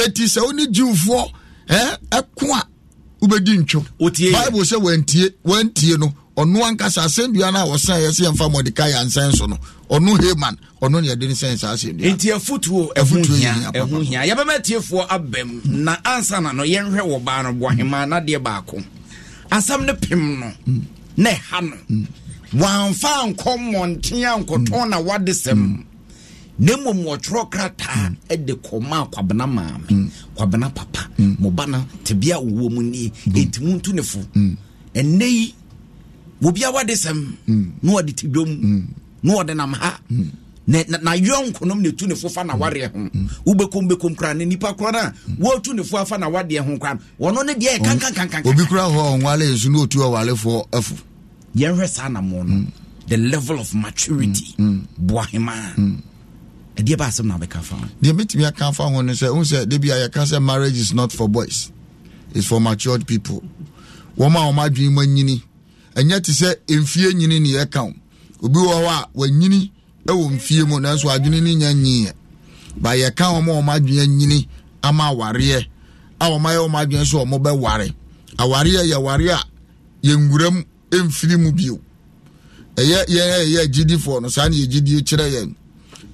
eti sɛ wone jiwfoɔ ɛɛ ɛko a wobɛdi ntwom bible sɛ wantie wantie no ɔno ankasa asɛnnua no a wɔsan yɛ sɛ yɛmfa mɔdekae ansɛn so no ɔno haman ɔno ne yɛde ne sɛn saa asɛnnua nti afotuo ɛho hia ɛho hia yɛbɛma atiefoɔ aba mu na ansa na no yɛnhwɛ wɔ baa no boahema nadeɛ baako asam no pem no na ɛha no wamfa ankɔ mmɔnten ankɔtɔn na wade sɛm mm. ne mmom wɔtwerɛ krataa de kɔma a kwabena maame mm. kwabena papa mm. mo ba no tebea wowɔ mu nie ɛnti mm. montu ne fo ɛnnɛ yi wobiaa wade sɛm na wɔde te na wɔde nam ha na yɔn nkonom na ne fo fa na wareɛ ho wobɛkom bɛkom koraa na nipa koraa na wɔtu ne fo afa na wadeɛ ho koraa wɔno ne deɛ kankankankan obi kura hɔ ɔnwale nso na otu ɔwalefoɔ afo yɛnhwɛ saa na mo no the level of maturity boahema ɛdeɛ ba asɛm na wobɛka fa ho deɛ mɛtumi aka fa ho no sɛ wohu sɛ da bia yɛka sɛ marriage is not for boys is for matured people wɔma a wɔma adwene mu anyini ɛnyɛ te sɛ mfie nyini ne yɛka wo obi wɔ hɔ a wanyini ɛwɔ mfie mu nanso adwene no nya nyiiɛ ba yɛka wɔn a wɔn adwene anyini ama awareɛ a wɔn ayɛ wɔn adwene so wɔn bɛware awareɛ yɛ ware a yɛnwura mu mfiri mu bio ɛyɛ yɛn a agyidifoɔ no saa na yɛ gyidie kyerɛ yɛn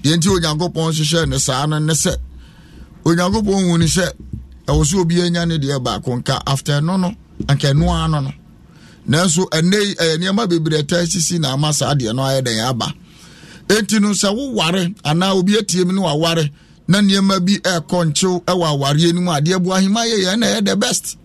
yɛnti onyankopɔn hyehyɛ ne saa no ne sɛ onyankopɔn hu ne sɛ ɛwɔ sɛ obi anya ne deɛ baako nka after no no anka ɛno ara no no nanso ɛnɛ ɛyɛ nneɛma bebree ɛtaa sisi na ama saa deɛ no ayɛ dɛn aba enti no sɛ woware anaa obi atie mu ne waware na nneɛma bi ɛɛkɔ nkyew ɛwɔ awareɛ no mu adeɛ bu ahema yɛ yɛn na ɛyɛ the best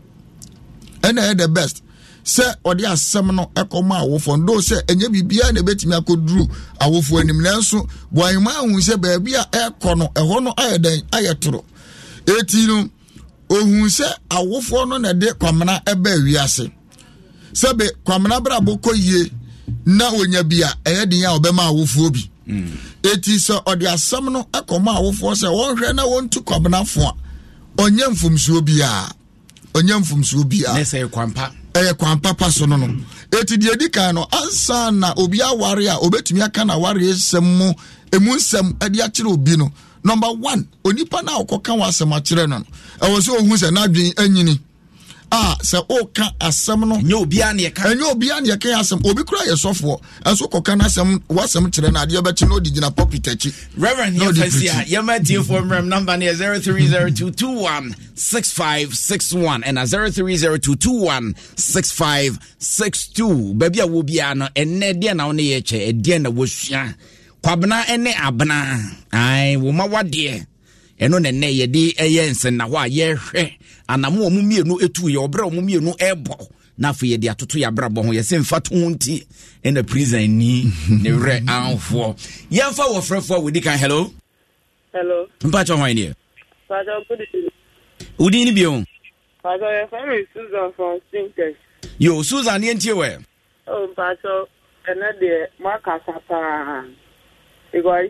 ɛna ɛyɛ the best sɛ ɔde asɛm no ɛkɔma awofoɔ no do sɛ ɛnyɛ biribiara na ɛbɛtumi akɔduru awofoɔ anim nanso buahema ahu sɛ baabi a ɛkɔ no ɛhɔ no ayɛ dɛn ayɛ toro ɛti no ohun sɛ awofoɔ no na ɛde kwamena ɛbɛ wiase sɛbe kwamena brabɔ kɔ yie na onya bi a ɛyɛ den a ɔbɛma awofoɔ bi ɛti mm. sɛ ɔde asɛm no ɛkɔma awofoɔ sɛ wɔnhwɛ na wɔntu kwamenafo a ɔnyɛ mfomsuo biara ɔnyɛ mfomsuo biara ɛyɛ kwan papa so no no ɛti deɛ di kan no ansa na obi aware a obɛtumi aka na aware nsɛm mu ɛmu nsɛm ɛde akyerɛ obi no number one onipa no a wɔkɔka wɔ asɛm akyerɛ no ɛwɔ sɛ ɔhu sɛ n'adwen anyini ah sɛ ɔka asɛm no ɛnyɛ obiara ne yɛka ɛnyɛ obiara ne yɛka asɛm obi kura yɛ sɔfoɔ ɛnso kɔka n'asɛm w'asɛm kyerɛ no adeɛ bɛkyi na gyina pulpit akyi. reverend yɛn fɛ si a yɛn mɛ tie fɔ mmerɛm namba no yɛ zero three zero two two one six five six one ɛna zero three zero two two one six five six two baabi a wɔ biara no ɛnɛ deɛ na wɔn ne yɛ kyɛ ɛdeɛ na wɔsua kwabena ne abena ayi wɔn ma wadeɛ. ɛno e na nnɛ yɛde ɛyɛ nsɛnna a yɛrehwɛ anamo ɔmo mmienu etu yɛ ɔbrɛ ɔmo mmienu ɛɛbɔ e na yɛde atoto yɛ abrabɔ ho yɛsɛ mfa to ho nti ɛna e prison ni ne werɛ anfoɔ yɛmfa wɔfrɛfoɔ a wɔdi kan hello hello mpakyɛ hwan deɛ wodin no bio Pastor, your family Susan from Stinkers. Yo, Susan, you ain't here. Oh, Pastor, and then the Marcus, because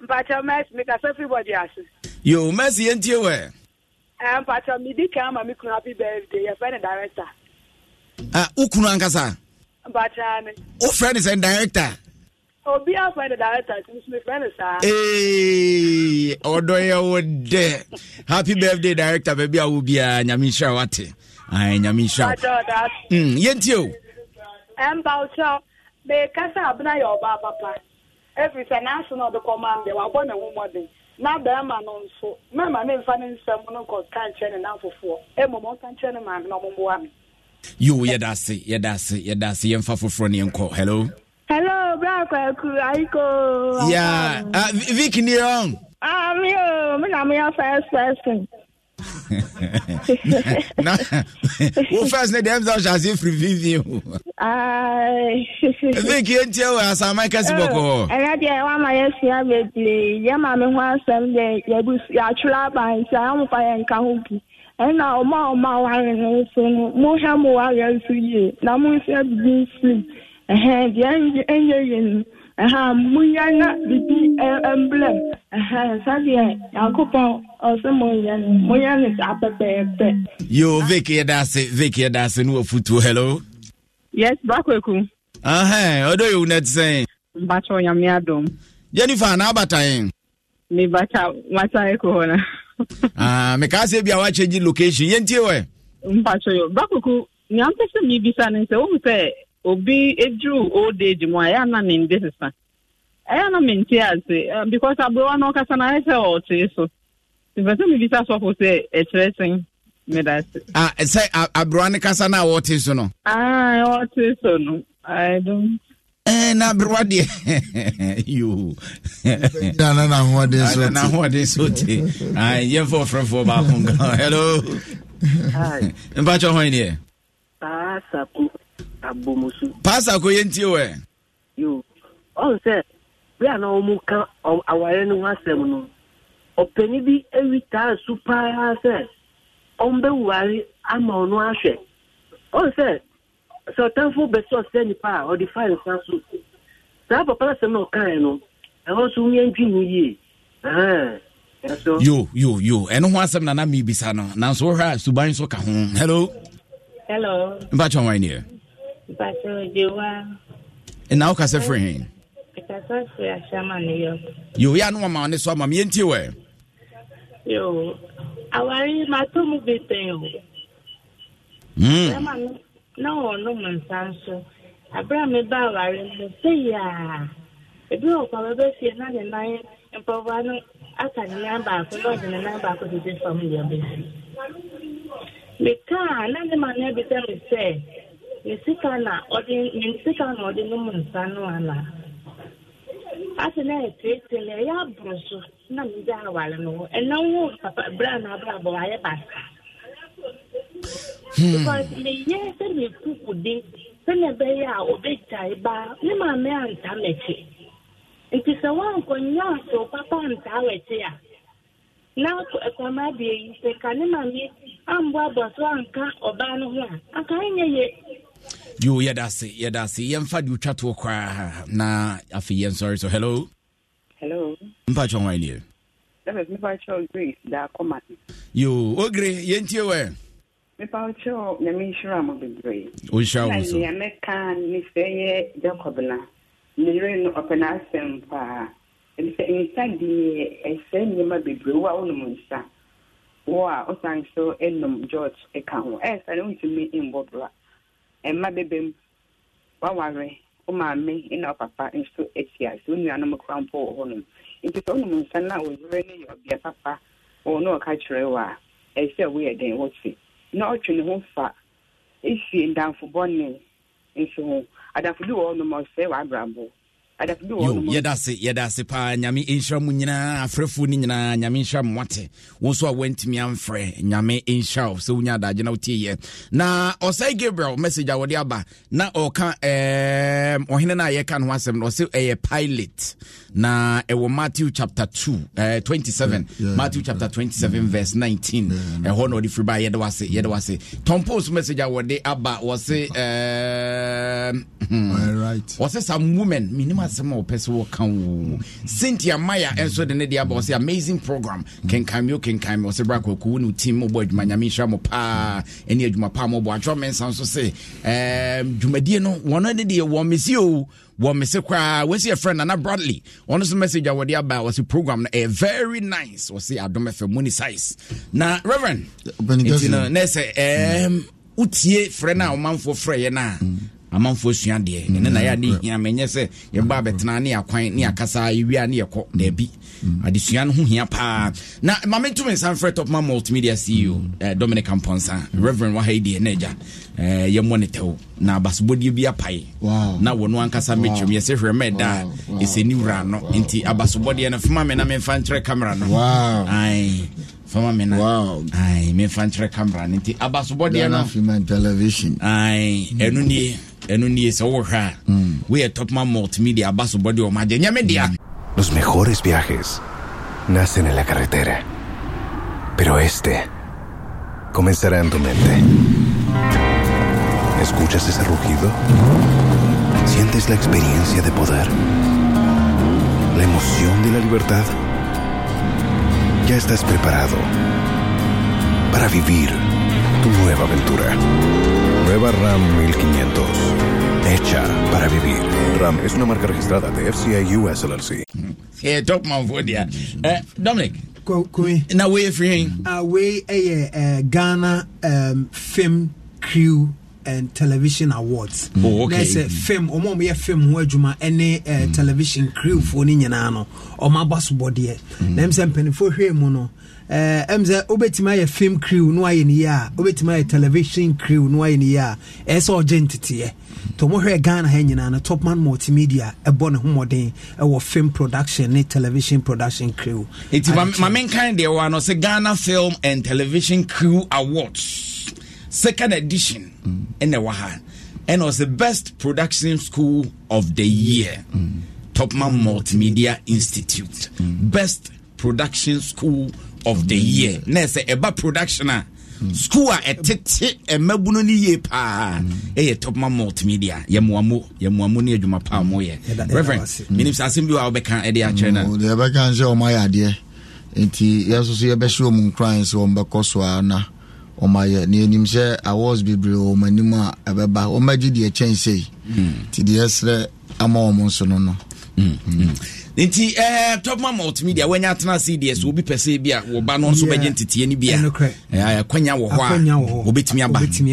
mpatsɔ mɛsi eh, mi kasa everybody ase. yoo mɛsi yẹn ti wɛ. ɛɛ mpatsɔ mi di kan ma mi kun happy birthday yɛ fɛ director. ah o kunu ankasa. mpatsɔ ni. o fɛ sɛ director. obi a fɛ director ti mi fɛ ni saa. ee eh, ɔdɔ yɛ wo dɛ happy birthday director bɛɛbi awo biara nyami nsira wa te ayi nyami nsira. ti mm, o. Mba eh, mpatsɔ mɛ kasa abuna yɛ ɔba papa. efi sɛ n'aso na ɔde kɔma mbɛ wabɔ ne ho mɔden na bɛrima no nso mmarima ne nfa ne nsɛm no kɔ ka ne n'afofoɔ emom ɔka nkyɛn ne maame na ɔmo mboa mi. yo yɛda ase yɛda ase yɛda ase yɛmfa foforɔ ne yɛnkɔ hello. hello bra kwaku ayiko. ya yeah. uh, vicky ni wrong. ah mi o oh, mi na mi yɛ first person. na wo first ne dem sọ ṣaṣe firifiri o. zinc yẹn tiẹ wọ asama kẹsì bọkọ. ẹnlẹ diẹ wọn ma yẹ sua bebree yẹ maa mi ho asẹm dẹ yẹbu yàtúrọ abansi àwọn mọfà yẹn nka ho bi ẹnna ọmọ ọmọ awari ni nso no mo hẹ mo wari nso yie na mo nso ebibi nsi ẹhẹn diẹ ẹnyẹ yẹn no ɛhɛn munya na bibi ɛmblɛm ɛhɛn sadiɛ ɔsɛ munya no munya pɛpɛɛpɛ. yoo vic yɛda ase vic yɛda ase ne wafutuo hello. yes bakweku. ɛhɛn ɔdɔ yewu na ti sɛn. mbatɔ nyamia dɔm. jennifer na abata yɛn. ne bata mata eko hɔ na. aa ah, mɛka ase bi a wakyɛ gyi location yɛn tie wɛ. mbatɔ yɛ bakweku nyɛ an pɛ sɛ mi bisa ne nsɛ o mu sɛ. obi eduru old age mu a ya na me ndị sisa ya na me nte ase because abụrụwa na ọkasa na ayịsa e ọtụ so mfesa mi bisa sọfọ sị ekyerɛ sị mmeda a e sị abụrụwa e, na na ọtụ so nọ. aa ọtụ so nọ. na yoo ayi yɛn fɔ fɛrɛfɔ hello mpatsɔ hɔn yi deɛ. saa abomusu. pasa ko yẹn ti wẹ. yoo oh, ọ̀n sẹ́ bí àná ọmọ kan àwárẹ̀ ni wọ́n asẹ̀mu nù ọ̀pẹ̀ni bí ewi taa su paa sẹ́ ọ̀n bẹ́ wùwárí ama ọ̀nù ahwẹ̀ ọ̀n sẹ́ sọ̀tẹ́nfò bẹ̀sẹ̀ ọ̀sẹ̀ nípa a ọ̀dì fáìlì san so saa papa asẹ̀mu na ọ̀kan yẹn no ẹ̀họ́ nso ń yẹn dwin yìí yo yo yo ɛno e ho asɛm na na mebisa no nanso wohwɛ a suban nso ka ho hello hello mpatwa wan neɛ ɛna woka sɛ frɛ he yo yɛ ano wama ne so ama meyɛntie wɛ awari mato mu bi pɛn o na wɔnom nsa nso abere a meba awari mu sɛ yaa ebi wɔ kwa bɛbɛfie na ne nan mpɔboa no aka ne nan baako na ɔde ne nan baako dede fam deɛ bɛsi mekaa na ne ma no abisa me sɛ nsịka na ọ dị n'ụmụ nta anụ ala asị na etu etele ya bụrụ so na ndị awara n'ụwa ena nwa papa bra na abụọ abụọ anyị basa hmm. because me yɛ sɛ me ya obe sɛnɛ bɛyɛ a obɛgyae baa ne maame anta m'akyi nti sɛ woankɔnya asew papa antaa w'akyi a na kwama abie yi sɛ ka ya maame ambɔ abɔ so anka ɔbaa no ho aka anyị nye ya. yo yɛda ase yɛda ase yɛmfa de wotwa toɔ koraa na afei yɛnsɔre so hello hello mpa kyɛ hwan neɛ yo ogre yɛntie wɛ mepa kyɛw nyame nhyira mo bebree nea mɛka ne sɛ yɛ jacob na meyere no ɔpɛ no asɛm paa ɛbi sɛ nsa deɛ ɛsɛ nneɛma bebree wo a wonom nsa wo a wosan so nom um, george ka ho ɛɛsa no wontumi mbɔ bra mma bebe m waware maame na ɔpapa nso ahyia sɛ onuanom kora mpo wɔ hɔnom nti sɛ wonom nsa na a ɔyere no ọbịa papa ɔwɔ na ɔka kyerɛ wɔ a ɛyɛ sɛ woyɛ den wɔte na ɔtwe ne ho fa ɛsie ndamfo bɔne nso ho adamfo bi wɔ hɔnom ɔsɛe w'abrabɔ Yo, yɛda se yɛda se paa nyame ɛnhyira mu nyinaa afrɛfoɔ no nyinaa nyame nhyira mmate wo nso a woantumi amfrɛ nyame ɛnhyira wo sɛ wonya adagye na wotieyɛ na ɔsɛe gabriel message a wɔde aba na ɔka ɔhene no a yɛka no ho asɛm no ɔsɛ ɛyɛ pilot na ɛwɔ matthew chapter 2 uh, 27 yeah, yeah, matthew chapter yeah, 27 mm. yeah, verse 19 ɛhɔ yeah, na ɔde firi ba yɛde wase yɛde wase tom post message a wɔde aba wɔse ehm, hmm. wɔse some women menim asɛm a wɔpɛ sɛ wɔka wo cynthia maya ɛnso de ne de aba wɔse amazing program kenkan me o kenkan me wɔse bra kwaku ne wo team mobɔ adwuma nyame nhyira mo paa ɛne adwuma paa mɔbɔ atwerɛ mensa nso se ehm, dwumadie no wɔno ne deɛ wɔ mesi o wɔn mese koraa wɔsi yɛ friend Nana Bradley ɔno nso message a wɔde aba wɔsi program no ɛyɛ very nice wɔsi adom fm money size na reverend nti no na wotie frɛ no a ɔmanfoɔ frɛ yɛ no a amanfoɔ sua deɛ mm. ɛne na yɛade mm. hia menyɛ sɛ yɛba mm. bɛtena ne akwan ne yɛakasa yɛwia ne yɛkɔ daabi adesua no ho hia paa na ma mentumi nsa mfrɛ topma multimedia ceo eh, dominic amponsa reverend wahai deɛ na agya eh, yɛmmɔ ne tɛwo na abasobɔdeɛ bi apae wow. na wɔno ankasa wow. mɛtwam yɛsɛ hwɛ ma ɛda wow. ni wura no wow. nti abasobɔdeɛ no fema me na memfa nkyerɛ camera no wow. fama me no memfa nkyerɛ camera no nti abasobɔdeɛ mm. no ɛno nie ɛno nie sɛ mm. we are top topma multimedia abasobɔdeɛ o nyɛ me media mm. Los mejores viajes nacen en la carretera, pero este comenzará en tu mente. ¿Escuchas ese rugido? ¿Sientes la experiencia de poder? ¿La emoción de la libertad? ya estás preparado para vivir tu nueva aventura. Nueva RAM 1500. Hecha para vivir. RAM es una marca registrada de FCI US LLC. Dominic. and television awards oh, okay. na ɛsɛ fam ɔmo ɔmo yɛ fam ho adwuma ɛne eh, mm. television crew foɔ ne nyinaa no ɔmo aba so bɔdeɛ mm. na ɛmu sɛ mpanimfoɔ hwɛ mu no film eh, crew no ayɛ ne yie television crew no ayɛ ne yie a ɛyɛ sɛ ɔgye nteteɛ to ɔmo hwɛ ghana ha nyinaa no topman multimedia ɛbɔ ne ho mmɔden ɛwɔ film production ne television production crew. eti maame nkan deɛ wa no ghana film and television crew awards second edition ɛna ɛwɔ ha was the best production school of the year mm. topman multimedia institute mm. best production school of the year na ɛsɛ ɛba production school a ɛtete ɛmɛbuno ne yie paa ɛyɛ topman multimedia yamuamu yamuamu ne adwuma paa moyɛ reverend menim sɛ asɛm bi wɔ a wobɛka ɛde e akyerɛ mm, no deɛ ɛbɛka n sɛ ɔmayɛ adeɛ nti yɛso so so a na ɔmayɛ ne anim sɛ awards bebree wɔ ɔma anim a ɛbɛba ɔmagye deɛ kyɛn sei nti hmm. deɛ serɛ ama ɔmo nso no no hmm, hmm. nti eh, topma multimedia wanya atena se deɛ sɛ obi pɛ sɛ bi a wɔba no nso bɛgye nteteɛ no bi a ɛkwanya wɔ hɔ a wɔbɛtumi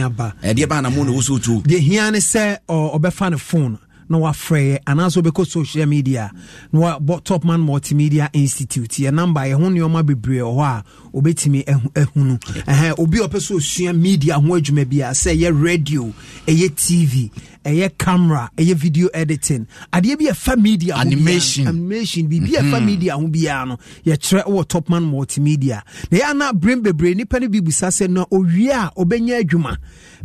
aba ɛdeɛ eh, baa na mo na wo sɛ wotuo deɛ hia ne sɛ ɔbɛfa ne phone na wafrɛ yɛ anaasɛ wobɛkɔ social media na wabɔ top man multimedia institute yɛ number yɛho nneɔma bebree wɔ hɔ a wobɛtumi ahunu ɛhɛn obi a ɔpɛ sɛ osua media ho adwuma bi a sɛ ɛyɛ radio ɛyɛ tv ɛyɛ camera ɛyɛ video editing adeɛ bi ɛfa media animation animation biribi ɛfa mm-hmm. media ho biara no yɛkyerɛ wɔ top man multimedia na yɛ ana brain bebree nipa no bi busa sɛ na owie a ɔbɛnya adwuma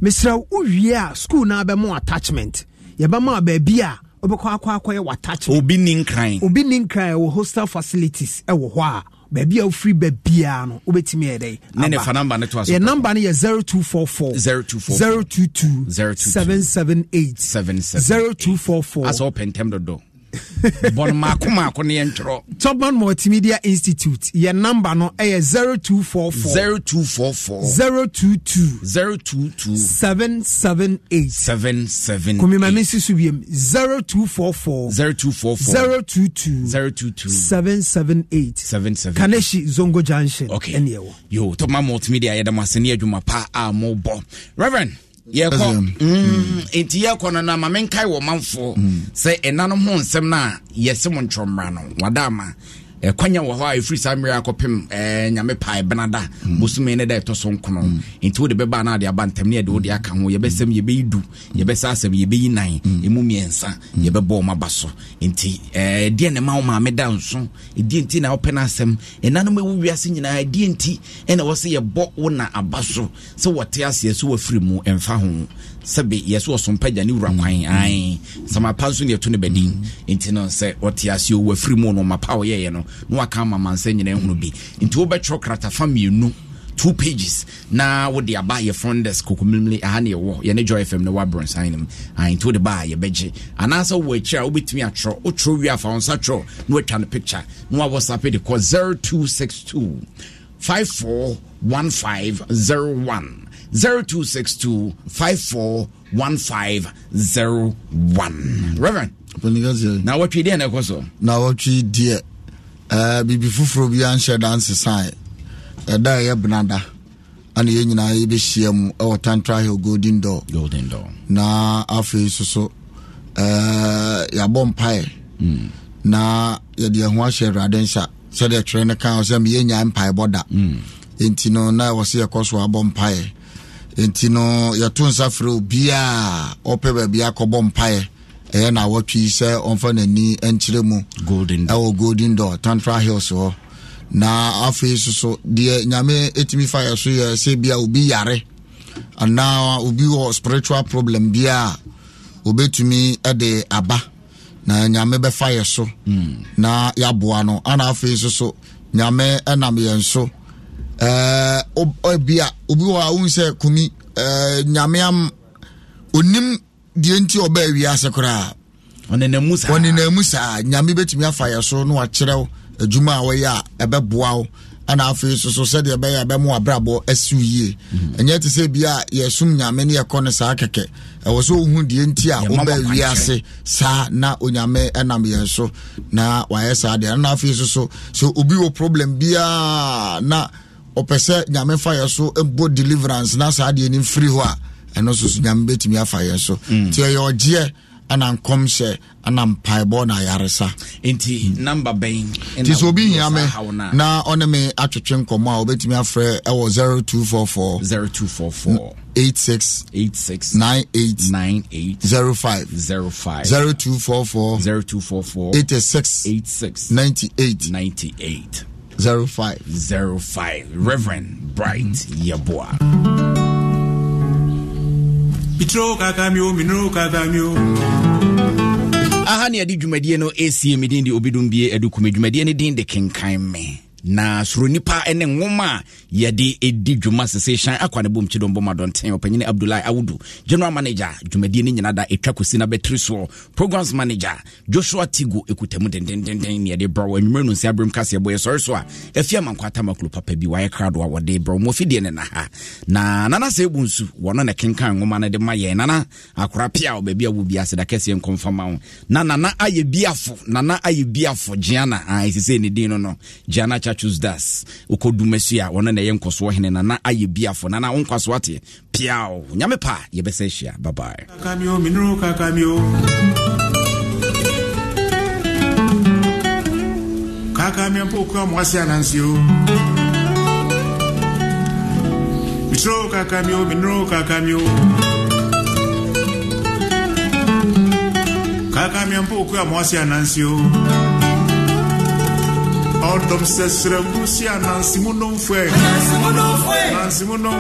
mesrɛ wowie a school na bɛmo attachment yɛbɛma baabi a wobɛkɔ akɔ akɔyɛ watakyɛ obi ni nkran obi ni nkran wɔ hostel facilities ɛwɔ hɔ a baabi a wofiri baabiaa no wobɛtumi yɛ dɛ ne ne fa namba ne to aso yɛ namba no yɛ 0244 022 022 778 778 0244 asɛ wopɛ ntɛm dodɔ bɔn maako maako ne yɛ ntwerɛ topman multimedia institute yɛ namba no ɛyɛ four four zero two four four zero two two zero two two seven seven eight seven seven. kaneshi zongo junction okay. ɛneɛwɔ yo topman multimedia yɛda mo ase ne adwuma pa a mobɔ reverend yɛkɔ mm, nti yɛkɔ no na ma menkae wɔ manfoɔ mm. sɛ ɛna no ho nsɛm no a yɛse mo ntwɔmmra no wadaama kwanya wɔ hɔ a ɛfiri saa mmerɛ akɔpem eh, nyame pae eh, benada bosome no da ɛtɔ so nkono nti wode bɛba no ade aba ntam ne yɛde wode aka ho yɛbɛsɛm yɛbɛyi du yɛbɛsa asɛm yɛbɛyi nan ɛmu mmiɛnsa yɛbɛbɔ ɔma ba so nti ɛdeɛ eh, ne ma wo maame nso ɛdeɛ nti na wopɛ no asɛm ɛnanom ɛwu wiase nyinaa ɛdeɛ nti ɛna wɔ sɛ yɛbɔ wo na aba so sɛ wɔte aseɛ so wafiri mu ɛmfa ho sɛbe yɛsɛ ɔsompagya ne wura kwan mm-hmm. ae samapa nso ne ɛto ne badin mm-hmm. nti no sɛ ɔte ase ɔwɔ afiri mu no mapa ɔyɛyɛ no na waka ama mansa nyina hunu bi nti wobɛtwerɛ krata fa mmienu two pages na wode aba yɛ fondes kokomimli aha ne yɛwɔ yɛne joy fm no wabrɔnsan no mu nti wode baa yɛbɛgye anaasɛ wowɔ akyi a wobɛtumi atwerɛ wotwerɛ wie afa wo nsa twerɛ na watwa no picture na wawɔsape de kɔ 0262 541501 0262 541501. Reverend. Now na wɔtwe deɛ na ɛkɔ so na wɔtwe deɛ uh, eh, biribi foforɔ bi anhyɛ danse sae ɛda ɛyɛ benada ana yɛn be see him ɛwɔ tantra hill golden door golden door Now after so so uh, eh, yɛabɔ mpaeɛ mm. na yɛde ɛho ahyɛ awurade nsa sɛdeɛ twerɛ no ka ɔ sɛ meyɛnya mpaebɔ da mm. enti no na ɛwɔ sɛ yɛkɔ so abɔ mpaeɛ nti no yɛto nsa frɛ obiaa ɔpɛ baabi akɔbɔ mpaeɛ ɛyɛ na awɔtwe sɛ ɔmfa n'ani nkyerɛ mu ɛwɔ golden door tantra hills hɔ na afei soso deɛ nyame ɛtumi fa yɛ so yɛ sɛ bia obi yare anaa obi wɔ spiritual problem bia obɛtumi de aba na nyame bɛfa yɛ so hmm. na yɛaboa no ana afei soso nyame ɛnam yɛn so bia obi wɔ a wohu sɛ kumi nyame am onim deɛ nti ɔbaa ase koraa ɔnenamu saa saa? nyame bɛtumi afa yɛ so na wakyerɛ adwuma a wɔyɛ a ɛbɛboa wo ana afei soso sɛdeɛ ɛbɛyɛ ɛbɛmo abrabɔ asiw yie mhm. ɛnyɛ te sɛ bi a yɛsom nyame ne yɛkɔ no saa kɛkɛ ɛwɔ sɛ ohu deɛ nti a wobɛ ase saa na onyame ɛnam yɛn so na wayɛ saa deɛ ana afei soso sɛ obi wɔ problem biaa na ɔpɛ sɛ nyame fa yɛ so mpo deliverance na saa deɛ nim firi hɔ a ɛno nso so nyame bɛtumi afa yɛ so mm. nti ɛyɛ ɔgyeɛ ana nkɔmhyɛ ana mpaebɔ na ayaresa nti namba bɛn nti sɛ obi hia me na ɔne me atwetwe nkɔmmɔ a wobɛtumi afrɛ ɛwɔ four four zero two four four eight six eight six ninety eight ninety eight 05 05 Reverend Bright Yeboah. aha ne yɛde dwumadie no ɛsie me de obidum bie adukume dwumadie no din de kenkan me na soro nipa ne nwoma a yɛde ɛdi dwuma sesehyan akwa ne bom bomkyi dombɔma dɔnten ɔpanyini abdullahi awudu general manager dwumadie no nyina da ɛtwa kosi na bɛtiri soɔ programs manager joshua tigo ɛkutamu dendendenden ne yɛde brɛ anwummerɛ no nsi aberɛm kaseɛ bɔ yɛsɔre so a afi amankɔ atamakuro papa bi wayɛ krado a wɔde brɛ mu afideɛ ne na ha na nana sɛ ɛbu nsu wɔno ne kenkan nwoma no de ma yɛn nana akora pia wɔ baabi a wo bia da kɛseɛ nkɔmfama wo na nana ayɛ biafo nana ayɛ biafo gyeana ɛsesɛ ah, ne din no no gyeana Chachu Das uko dumesu a wɔno na ɛyɛ nkɔsoɔ hene na na ayɛ biafo na na wo nkwasoɔ ate piao nyame pa yɛbɛsɛ bye bye kakamio kakamio mpo mitro kaka mi o minro kaka mi mpo kura mwasi anansio no no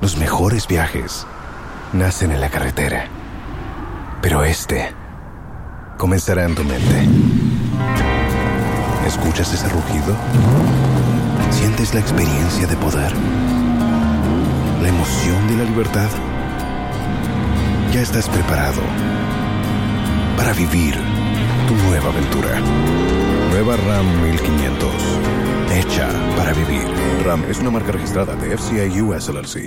Los mejores viajes nacen en la carretera, pero este comenzará en tu mente. ¿Escuchas ese rugido? Sientes la experiencia de poder, la emoción de la libertad. Ya estás preparado para vivir tu nueva aventura. Nueva RAM 1500. Hecha para vivir. RAM es una marca registrada de FCI US LLC.